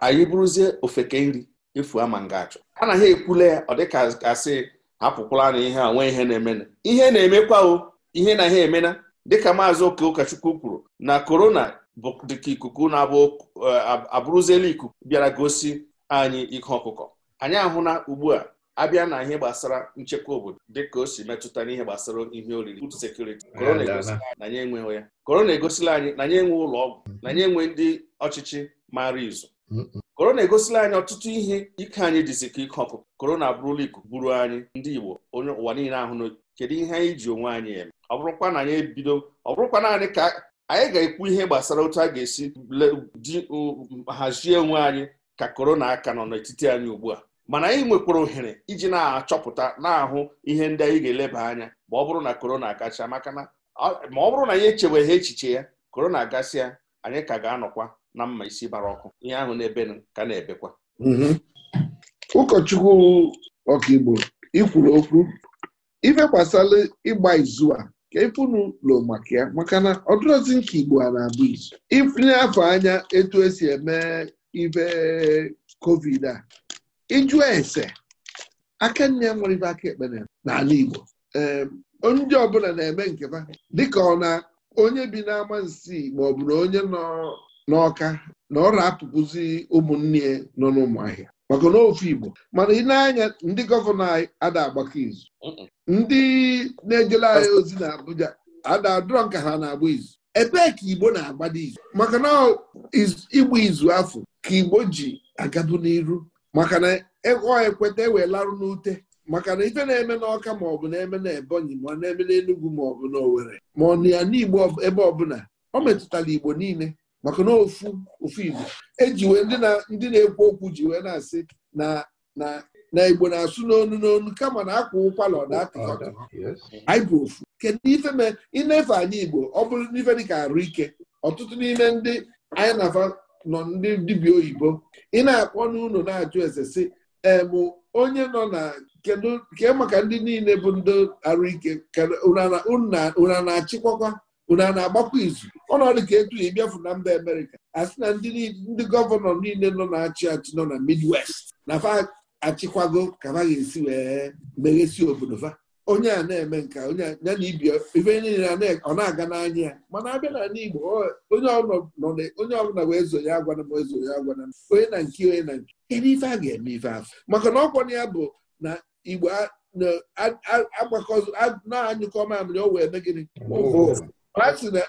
C: anyị bụrụzie ofeke nri efu ama ngachụ anaghị ekwule ya ọ dịka asị hapụkwala na ihe a nwee ihe na-emena ihe na-emekwa o ihe na ihe emena dịka maazị oke ụkọchukwu kwuru na korona bụ dịka ikuku na-abụ eh, abụrụziela ikuku bịara gosi anyị ihe ọkụkọ anyị ahụla ugbu a abịa na ihe gbasara nchekwa obodo dịka o si metụta n'ihe gbasara ihe oriri food security korona egosila na anyị enweghị korona egosila anyị na anyị enwe ụlọ ọgwụ na anyị enwe ndị ọchịchị mara izu korona egosila anyị ọtụtụ ihe ike anyị dịzi ka ike ọkụ korona abụrụla ikuku gburu anyị ndị Igbo onye ụwa niile ahụ kedu ihe anyị ji onwe anyị eme ọ bụrụkwa na anyị ebido ọ bụrụkwa naanị ka anyị ga-ekwu ihe gbasara otu a ga-esi ji hazie onwe anyị ka korona aka nọ n'etiti anyị ugbu a mana anyị nwekwara ohere iji na-achọpụta na-ahụ ihe ndị anyị ga-eleba anya ma ọ bụrụ na korona akacha maka na ma ọ bụrụ na anyị echebeghị echiche ya korona agasịa anyị ka ga-anọkwa na mma isi bara ọkụ ihe ahụ na-ebe ka na-ebekwa
A: mhm. ụkọchukwu ọkaigbo ikwuru okwu ife ịgba izu a ka ifunu lo maka ya maka na ọdụrọzi nke igbo a na-abụ izu ifunye afọ anya etu esi eme ife covid a ịjụ ese aka nne nwere ibe aka ekpere n'ala igbo ndị ọbụla na-eme nke fa dịka ọ na onye bi n'ama nsi maọbụ na onye nọ n'ọka na ọ apụpụzi ụmụnne nọ n'ụmụahịa maka na ofe Igbo mana ị na-anya ndị gọvanọ anyị ada agbakọ izu ndị na-ejela anyị ozi na Abuja ada adọrọ nka ha na-agba izu ebee ka Igbo na-agbado izu maka na igba izu afọ ka Igbo ji agabu n'iru maka na ego ekweta ewee larụ n'ute maka na ife na-eme n'ọka maọbụ na-eme na Ebonyi ma na-eme n'Enugwu maọbụ na Owerri ma ọ na ya n'Igbo ebe ọbụla ọ metụtara Igbo niile maka na ofu ofu Igbo eji ndị na-ekwu okwu ji wee na-asị na na Igbo na-asụ n'onu n'onu kama na akwa ụkwala ọ na-atọ anyị ofu kedu ife mee inefe anyị Igbo ọ bụrụ n'ife dịka arụ ike ọtụtụ n'ime ndị anyị na-afa nọ ndị dibịa oyibo ị na-akpọ n'ụlọ na-ajụ eze si emụ onye nọ na kedu ke maka ndị niile bụ ndị arụ ike unu na-achịkwakwa unu a na-agbakwa izu ọnọdụ ka etu ịbịafu na mba amerịka asị na ndị gọvanọ niile nọ na-achị achị nọ na midwest na fa achịkwago ka fa ga-esi wee meghesi obodo fa onye a na-eme nka ya na ibe niile ọ na-aga n'anya ya mana abịa na igbo onye ọbụla wee zo ya agwana m ezo ya agwana m onye na nke onye na nke ebe ife a ga-eme ife afọ maka na ọkwa ya bụ na igbo na-anyụkọ mamịrị o wee mee gịnị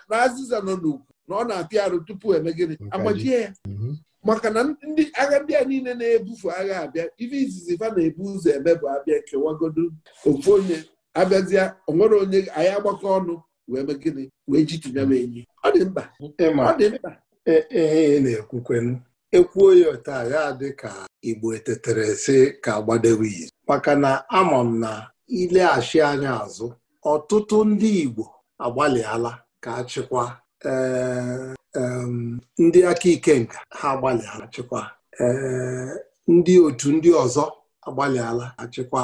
A: na azịza nọ n'ugwu na ọ na-apịa arụ tupu eme agbajie ya mhm. maka na ndị agha ndị a niile na-ebufu agha abịa ife izizi fa na-ebu ụzọ eme bụ abịa kewagodo ofu onye abịazịa onwere onye anyị agbakọ ọnụ wee mee wee ji tinye m enyi
D: ọ dị mkpa ọ e, na-ekwukwenu ekwuo ya otu agha dị ka igbo etetere si ka agbadewe iyi maka na ama m na ileghachi anya azụ ọtụtụ ndị igbo agbalịala ka achịkwa eh, ndị aka ike nka ha agbalịala chịkwa eh, ndị otu ndị ọzọ agbalịala achịkwa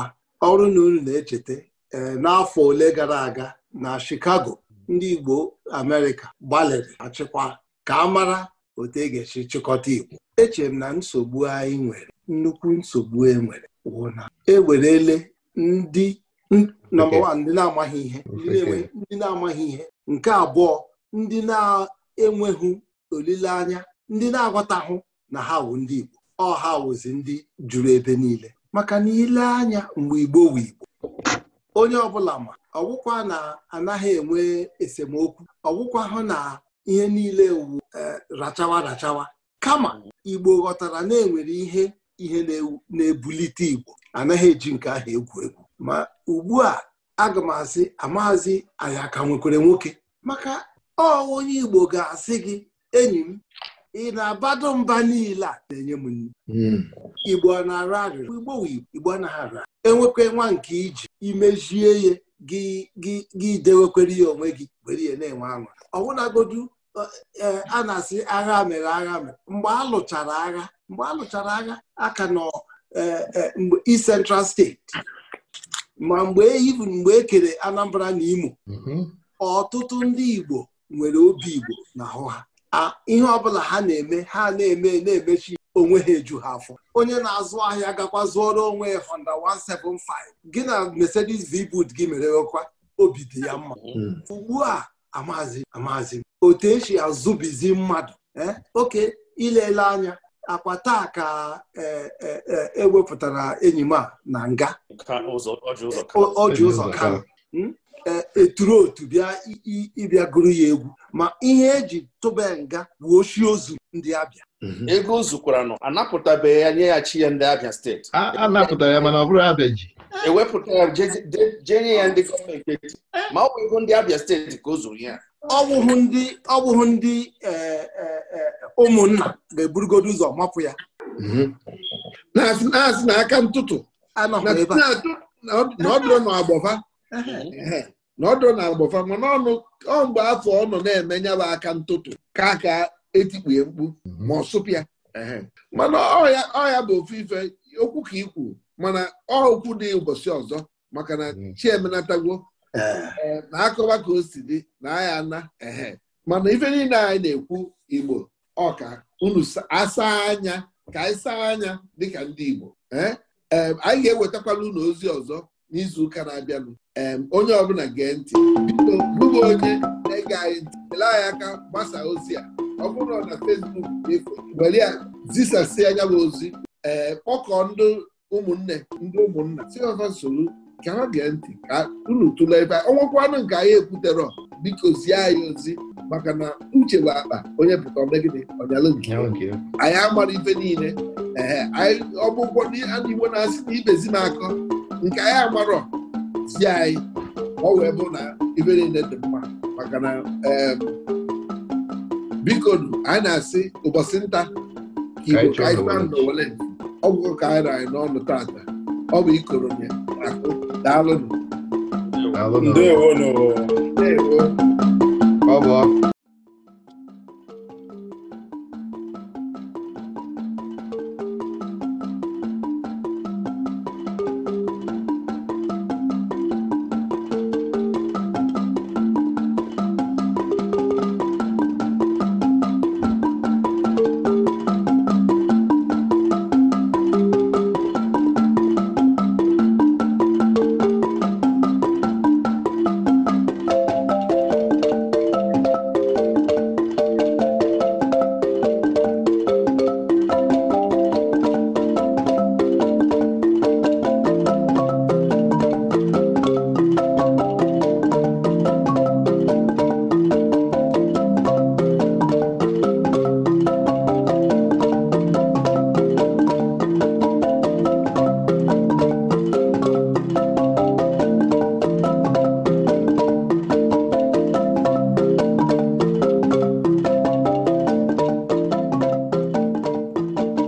D: ọrụ na unu na-echeta eh, n'afọ ole gara aga na Chicago ndị Igbo Amerịka gbalịrị achịkwa ka a mara otu e ga-esi chịkọta Igbo echere m na nsogbu anyị nwere nnukwu nsogbu e nwere wụ na ewerele ndị Hmm? nọmba wan ndị na-amaghị ihe ndị na-amaghị ihe nke abụọ ndị na-enweghị olileanya ndị na-aghọtahụ na ha wụ ndị Igbo ọ ha wụzi ndị juru ebe niile maka na ile anya mgbe Igbo wụ Igbo onye ọbụla ma ọgwụkwa na anaghị enwe esemokwu ọgwụkwa hụ na ihe niile wu e, rachawa rachawa kama Igbo ghọtara na enwere ihe ihe na-ebulite Igbo anaghị eji nke ahụ egwu egwu ma ugbu a aga m asị amaazị anyị aka nwekwere nwoke maka ọ onye Igbo ga-asị gị enyi m ị na-abado mba niile a na-enye m nri hmm. Igbo na arụ arịrị Igbo Igbo enwekwe nwa nke iji imezie ya gị dewekwere ya onwe gị were na-enwe aṅụ ọbụnagodu e, a na-asị agha mere agha mere mgbe alụchara agha mgbe a lụchara agha aka nọ e, e, steeti. Central ma mgbe ibu mgbe e kere Anambra na Imo mhm. ọtụtụ ndị Igbo nwere obi Igbo na ahụ ha ihe ọbụla ha na-eme ha na-eme na-emechi onwe ha eju ha afọ onye na-azụ ahịa gakwa zụọrọ onwe ya Honda 175 gị na Mercedes v gị mere ọkwa obi dị ya mma mhm. ugbu a amazi amazi otu esi azụbizi mmadụ eh, oke ilele anya akwa taa ka ewepụtara e, e, e enyi m a na nga
C: ọ ji ụzọ ka
D: eturu hmm? otu bịa ịbịa gụrụ ya egwu ma ihe eji tụba nga bụ oshi ozu ndị abịa mhm. ego o zukwaranụ anapụtabeghị
C: ya nye ya chi ya ndị abịa steeti anapụtara
B: ya mana ọ bụrụ abịa ji
C: ewepụta ya jee ya ndị gọọmenti ma ọ bụ ego ndị abịa steeti ka o zuru ya
D: ọwụhụ ndị ọwụhụ ndị e, e, e, ụmụnna ga-eburugodo ụzọ mapụ ya mhm. na-asị na aka ntụtụ na ọdụrụ na
A: agbọfa na ọdụrụ na agbọfa mana ọnụ ọ mgbe afọ ọ nọ na-eme nyaba aka ntụtụ ka aka etikpue mkpu ma ọ sụpụ sụpịa mana ọya bụ ofu ife okwu ka ikwu mana ọ okwu dị ụbọchị ọzọ maka na mm. chiemenatagwo Eh, na akụba ka o si dị na aya ana mana ife niile anyị na-ekwu igbo ọka unu asa anya ka anyị saa anya dịka ndị igbo eh? Eh, anyị ga-ewetakwala unu ozi ọzọ n'izu ụka na-abịanụ onye ọbụla gee ntị biko bụga onye na-ege anyị ntị ele anyị aka gbasaa ozi a ọ bụrụ na Facebook were ya zisasị anya bụ ozi kpọkọọ ndị ụmụnne ndị ụmụnna si ọfa nsogbu ka ha gee ntị ka unu tụlee ebe ọnwakwanụ nke anyị ekwutere biko zie anyị ozi maka na uche bụ akpa onye pụta omegide ọnyalụ nke anyị amara ife niile ee anyị ọgbụgbọ igbo na-asị na ibezi na-akọ nke anyị amarọ zi anyị ọ wee bụ na ife niile dị mma maka na biko anyị na-asị ụbọchị nta igbo ka anyị ma na owele ọgwụgwọ ka anyị anyị n'ọnụ taata ọ bụ ikoro ya akụ daalụ
D: ndewo ndewo
A: ọ bụ ọkụ